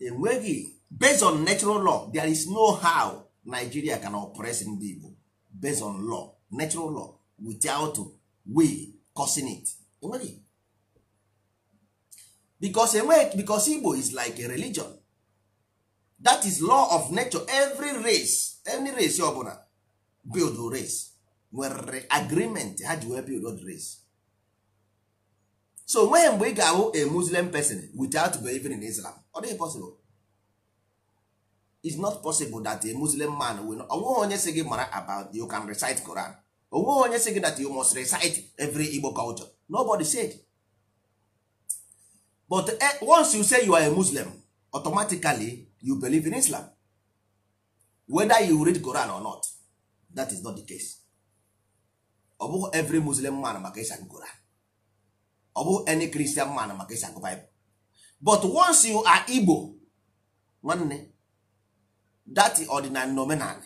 enweghị based on natural law there is no how nigeria can oppress ndị igbo based on law natural law without we causing it enweghị because enweghị because igbo is like a religion that is law of nature every race any race ọbụla build race nwere agreement ha ji wee build race so nweghị mgbe ị ga-ahụ a muslim person without believing in islam ọ dịghị possible it's not possible that a muslim man will onweghị onye sị gị mara about you can recite Quran onweghị onye sị gị that you must recite every Igbo culture nobody said but eh, once you say you are a muslim automatically you believe in islam whether you read Quran or not that is not the case ọ bụghị every muslim man maka ịsa Quran ọ bụghị any christian man maka ịsa Bible but once you are Igbo nwanne that ordinary nominal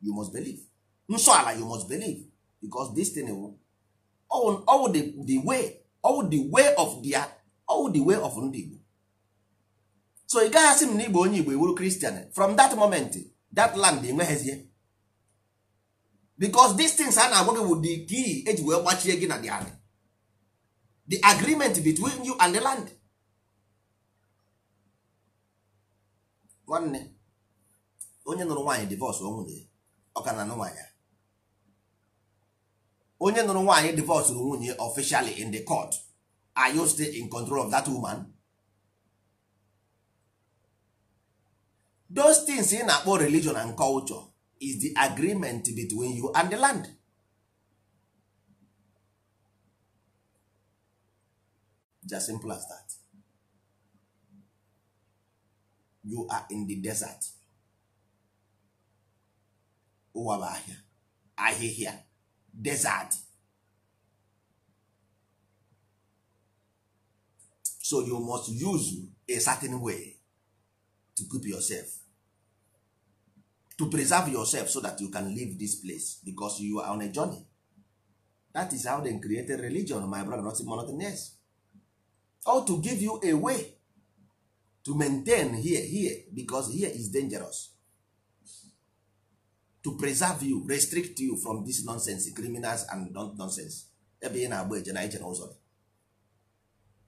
you must believe nsọ ala you must believe because this thing will all, di the, way of oh, of ndị Igbo so ị gaghị asị m na Igbo onye Igbo ewuru Christian from that moment that land enweghịzie because these things a na-agwa gị bụ key eji wee gbachie gị na the agreement between you and the land nwanne onye nụrụ nwaanyị divọs onwunye ọka na nwaanyị onye nụrụ nwaanyị divọs nwunye officially in the court are you still in control of that woman those things ị na-akpọ religion and culture is the agreement between you and the land just simple as that. you are in the desert ụwa bụ ahịa ahịhịa desert so you must use a certain way to keep yourself to preserve yourself so that you can leave this place because you are on a journey that is how they created religion my brother not more nothing else or to give you a way to maintain here here because here is dangerous to preserve you restrict you from this nonsense criminals and nonsense ebe ị na-agba eje na ije na ụzọ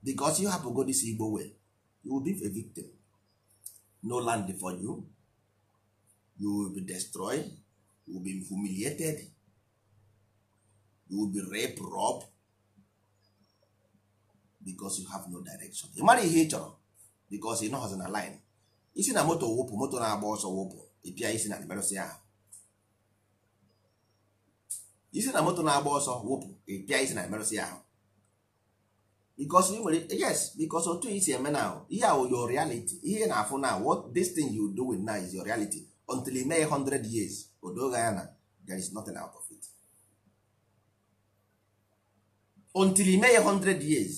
because you hapụ go this Igbo well you will be a victim no land for you you will be destroyed you will be humiliated you will be raped rob because you have no direction ị mara ihe ị chọrọ bikos ị nọghọzi na line isi na moto wụpụ moto na-agba ọsọ wụpụ ịpịa isi na emerụsị ahụ isi na moto na-agba ọsọ wụpụ ịpịa isi na emerụsị ahụ bikos ị nwere yes bikos otu isi eme na ihe ahụ your reality ihe na-afụ na what this thing you with now is your reality until ị mee hundred years odoga ya na there is nothing out of it until ị mee hundred years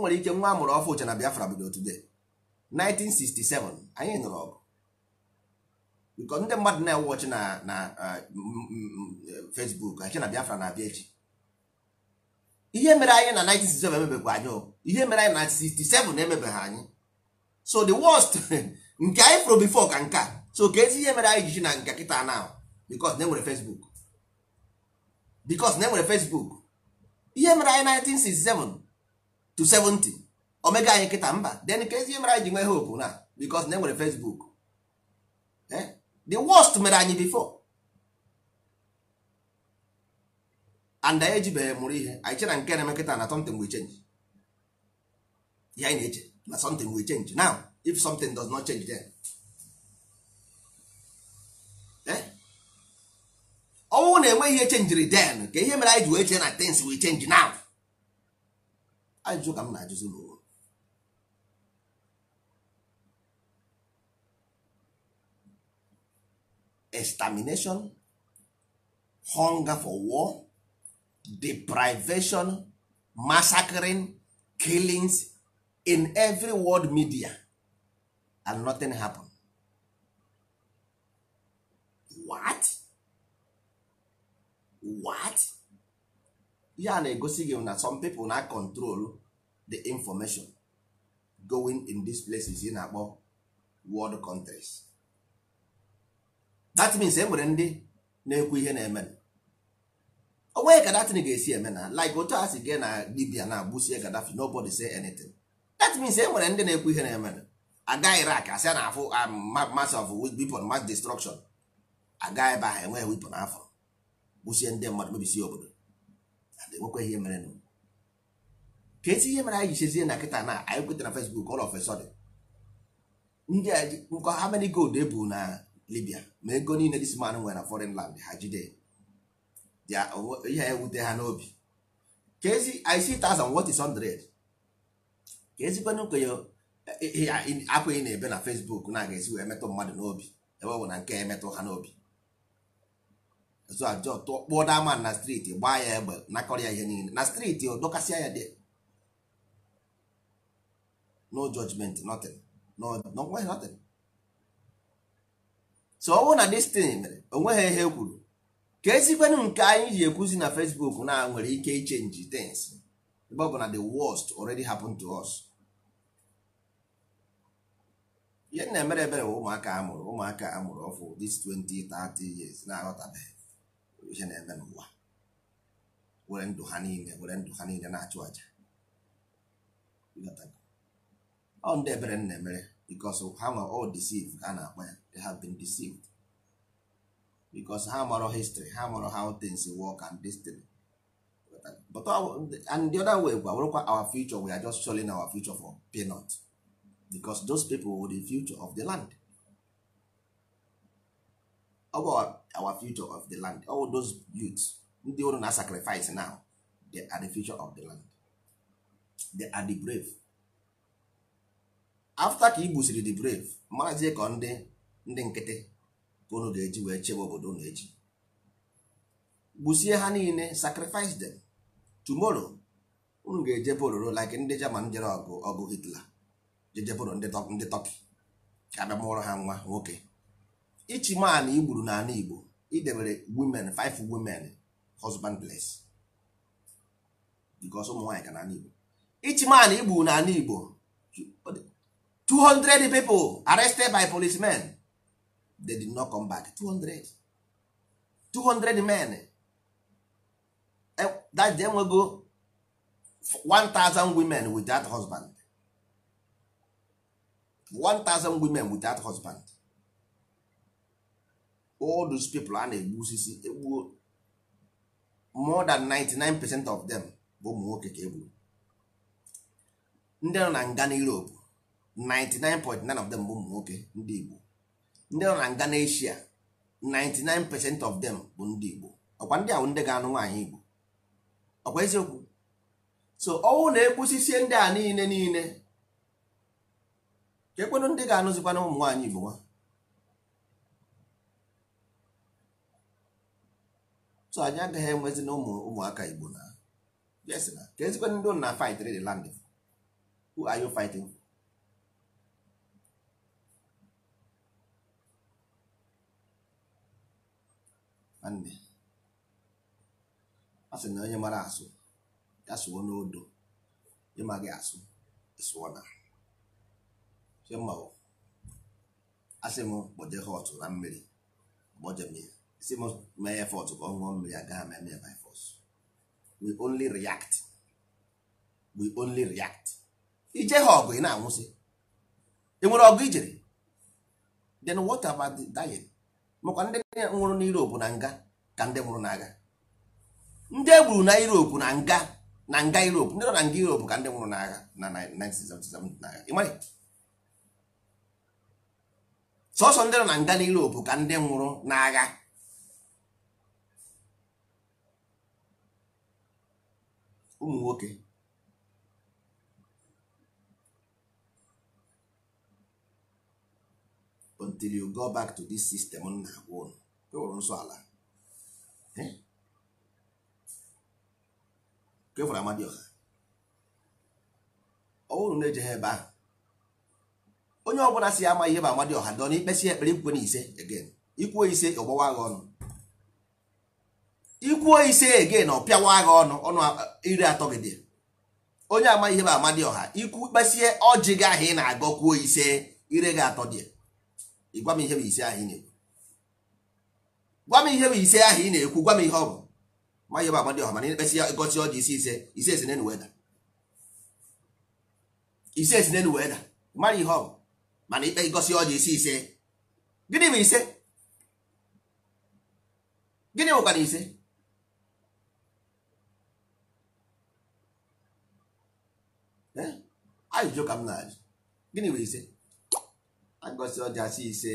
o nwere ike nwa amụrụ ọfụ uche na Biafra bido today 1967 anyị nụrụ ọgụ because ndị mmadụ na-ewọchi na na Facebook achị na Biafra na-abịa echi ihe mere anyị na 1967 emebekwa anyị ihe mere anyị na 67 emebeghị anyị so the worst [laughs] nke anyị fụrụ bifo ka nke so ka ezi ihe mere anyị jiji na nke kịta na because na enwere Facebook because na enwere Facebook ihe mere anyị 1967 to 70 omega anyị nkịta mba den ka ezi mere anyị ji nwee hope na because na enwere Facebook eh? the worst mere anyị before and anyị ejibeghị mụrụ ihe anyị chere nke na-eme nkịta na something will change ya anyị na-eche na something will change now if something does not change then eh? ọnwụ na-enwe ihe chenjiri then ka ihe mere anyị ji wee chee na things will change now ajụjụ ka m na-ajụzi n'ụwa extermination hunger for war deprivation massacring killings in every world media and nothing happen what what ihe a na-egosi gị na some people na control the information going in these places ị na-akpọ world countries that means e nwere ndị na-ekwu ihe na-eme ọ nweghị ka datin ga-esi eme na like otu a si gị na Libya na agbụsie Gaddafi nobody say anything that means e nwere ndị na-ekwu ihe na-eme aga Iraq asị a na-afụ um, mass of weapon mass destruction aga ebe ahụ enweghị weapon afọ gbụsie ndị mmadụ mebisie obodo enwekwa ihe mere nụ kesi ihe mere anyị ji chezie na nkịta na anyị kweta na fesbuk ụlọ of a ndị nkọ ha many gold ebu na Libya ma ego niile this man nwere na foreign land ha jide oh, ihe ewute ha n'obi kezi I see thousand what is hundred ka ezikwanụ kwenye eh, eh, eh, akwa ị na-ebe na fesbuk na-aga esi wee metụ mmadụ n'obi ebe ọ bụ na nke emetụ ha n'obi so ajọ tụọ kpụọ dama na striti gbaa ya egbe nakọrọ ya ihe niile na striti o dọkasịa ya dị no judgment nothing no no nothing so ọ na destin mere onweghị ihe kwuru ka ezikwenụ nke anyị ji ekwuzi na facebook na nwere ike ichenji things ebe bụ na the worst already happened to us ihe na-emere ebere bụ ụmụaka amụrụ ụmụaka amụrụ ọfụ this 20 30 years na-aghọtabeghị وجينا أمام الله وعنده ndụ ha niile na achụ aja ọ ndị ebere nna emere because ha nwa all deceived ka a na-akpa ya they have been deceived because ha marọ history ha marọ how things work and destiny but and the other way gwa wụrụkwa our future we are just showing our future for peanut because those people were the future of the land about our future of the land all those youths ndị ụrụ na sacrifice now they are the future of the land they are the brave after ka igbusiri the brave mazie ka ndị ndị nkịtị ka unu ga-eji wee chebe obodo unu eji gbusie ha niile sacrifice them tomorrow unu ga-eje bororo like ndị German jere ọgụ ọgụ Hitler jejeboro ndị Turkey ka abịa mụọrọ ha nwa nwoke ichi man igburu n'ala Igbo idebere women five women husband place because ụmụ nwaanyị ka n'ala Igbo ichi man igburu n'ala Igbo 200 people arrested by policemen they did not come back 200 200 men e, that day enwego 1000 women without husband 1000 women without husband all those people a na-egbu osisi egbuo more than 99 percent of them bụ ụmụ nwoke ka egburu ndị nọ na nga na Europe 99.9 of them bụ ụmụ nwoke ndị Igbo ndị nọ na nga na Asia 99 percent of them bụ ndị Igbo ọkwa ndị ahụ ndị ga-anụ nwaanyị Igbo ọkwa eziokwu so ọnwụ na-egbusisi ndị a niile niile ka ekwenụ ndị ga-anụzikwana ụmụ nwaanyị Igbo nwa so anyị agaghị enwezi na ụmụ ụmụaka igbo na yes na ka ezikwe ndị na fight the land who are you fighting nwanne a sị na onye mara asụ ya sụọ n'odo ịmaghị asụ ịsụọ na asị m kpoje ha ọtụ na mmiri kpoje m si m mee effort ka ọ ṅụọ mmiri agaghị m eme by force we only react we only react ije ha ọgụ ị na-anwụsị enwere nwere ọgụ ijere then what about the diet makwa ndị nwụrụ na Europe na nga ka ndị nwụrụ n'agha ndị egburu na Europe na nga na nga Europe ndị nọ na nga Europe ka ndị nwụrụ n'agha na 1977 na. sọsọ ndị nọ na nga na Europe ka ndị nwụrụ n'agha ụmụ nwoke until you go back to this system m na-agwa ụnụ kewụrụ nsọ ala kefụrụ amadi ọha bụrụ na eje ha ebe ahụ onye ọbụla si ama ihe bụ dị dọ na ikpesi ekpere ikwe na ise again ikwe ise ọgbawa agha ọnụ ikwuo ise ege na ọpịawa agha ọnụ ọnụ iri atọ gị dị onye ama ihe bụ amadi ọha ikwu kpesie ọjị gị ahụ ị na-agọ kwuo ise ire gị atọ dị gwa m ihe bụ ise ahụ ị na-ekwu gwa m ihe bụ ise ahụ ị na-ekwu gwa m ihe ọ bụ ma ihe bụ amadi ọha mana ị na-ekpesi ọjị isi ise ise esi n'enu weda ise esi n'enu weda mara ihe ọ bụ mana ikpe ịgọsi ọjị isi ise gịnị bụ ise gịnị bụkwa na ise ajụjụ ka m na-ajụ gịnị bụ ise agọsị ọja si ise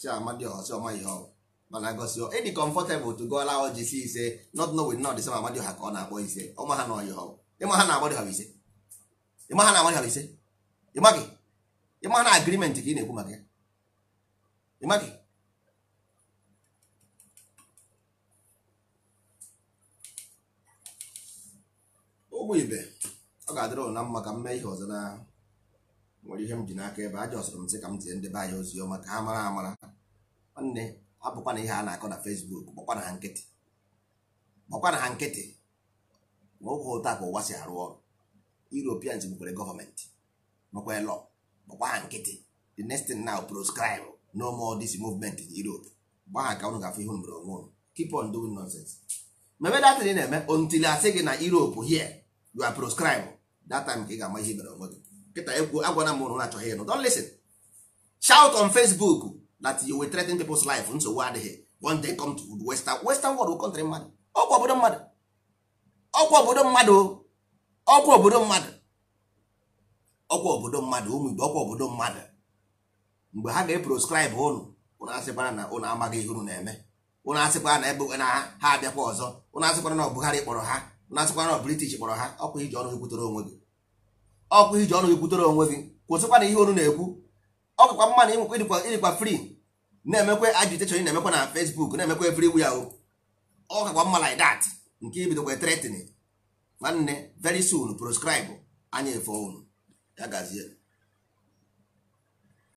chiamadi ọsị ọma ihe ọrụ mana agọsị ịdị e comfortable to go allow ọjị si ise not know with not ma amadi ha ka ọ na-akpọ ise ọma ha na ọyị ọrụ ịma ha na-agbadị ha ise ịma ha na-agbadị ha ise gị ịma na agreement ka ị na-ekwu maka ya gị. ụgbọ ibe ọ ga-adịrị ụna mma ka m mee ihe ọzọ na nwere ihe m ji n'aka ebe aja ọsọrọ m sị ka m tie ndebe anya ozi ọma ka ha mara amara nwanne abụkwa na ihe a na-akọ na Fesbuk gbakwa na ha nkịtị gbakwa na ha nkịtị ma oge ụta ka ụwa si arụ ọrụ Europeans gbukwere gọọmenti nwekwee lọ gbakwa ha nkịtị the next thing now proscribe no more this movement in Europe gba ha ka unu gafe ihe mere onwe keep on doing nonsense mebe na-eme until asị gị na Europe here you are proscribed that time ka ị ga-ama ihe mere onwe gị nkịta egwu agwana m ụrụ na-achọghị ịnụ don't listen shout on facebook that you will threaten people's life nsogbu adịghị one day come to western western world country mmadụ ọkwa obodo mmadụ ọkwa obodo mmadụ ọkwa obodo mmadụ ọkwa obodo mmadụ ụmụ igbo ọgwụ obodo mmadụ mgbe ha ga-eproscribe ụnụ ụnụ asịkwara na ụnụ amaghị ihe ụnụ na-eme ụnụ asịkwara na ebe na ha abịakwa ọzọ ụnụ asịkwara na ọ Buhari ịkpọrọ ha na-asịkwana british kpọrọ ha ọkwa iji ọnụ ekwutere onwe gị ọkwa iji ọnụ ekwutere onwe gị kwụsịkwa na ihe onu na-ekwu ọkụkwa mma na ịnwekwa ịdịkwa ịdịkwa free na-emekwa agitation na-emekwa na facebook na-emekwa free wu ahụ o mma like dat nke ibidokwa threatening nwanne very soon proscribe anya efe unu ya gazie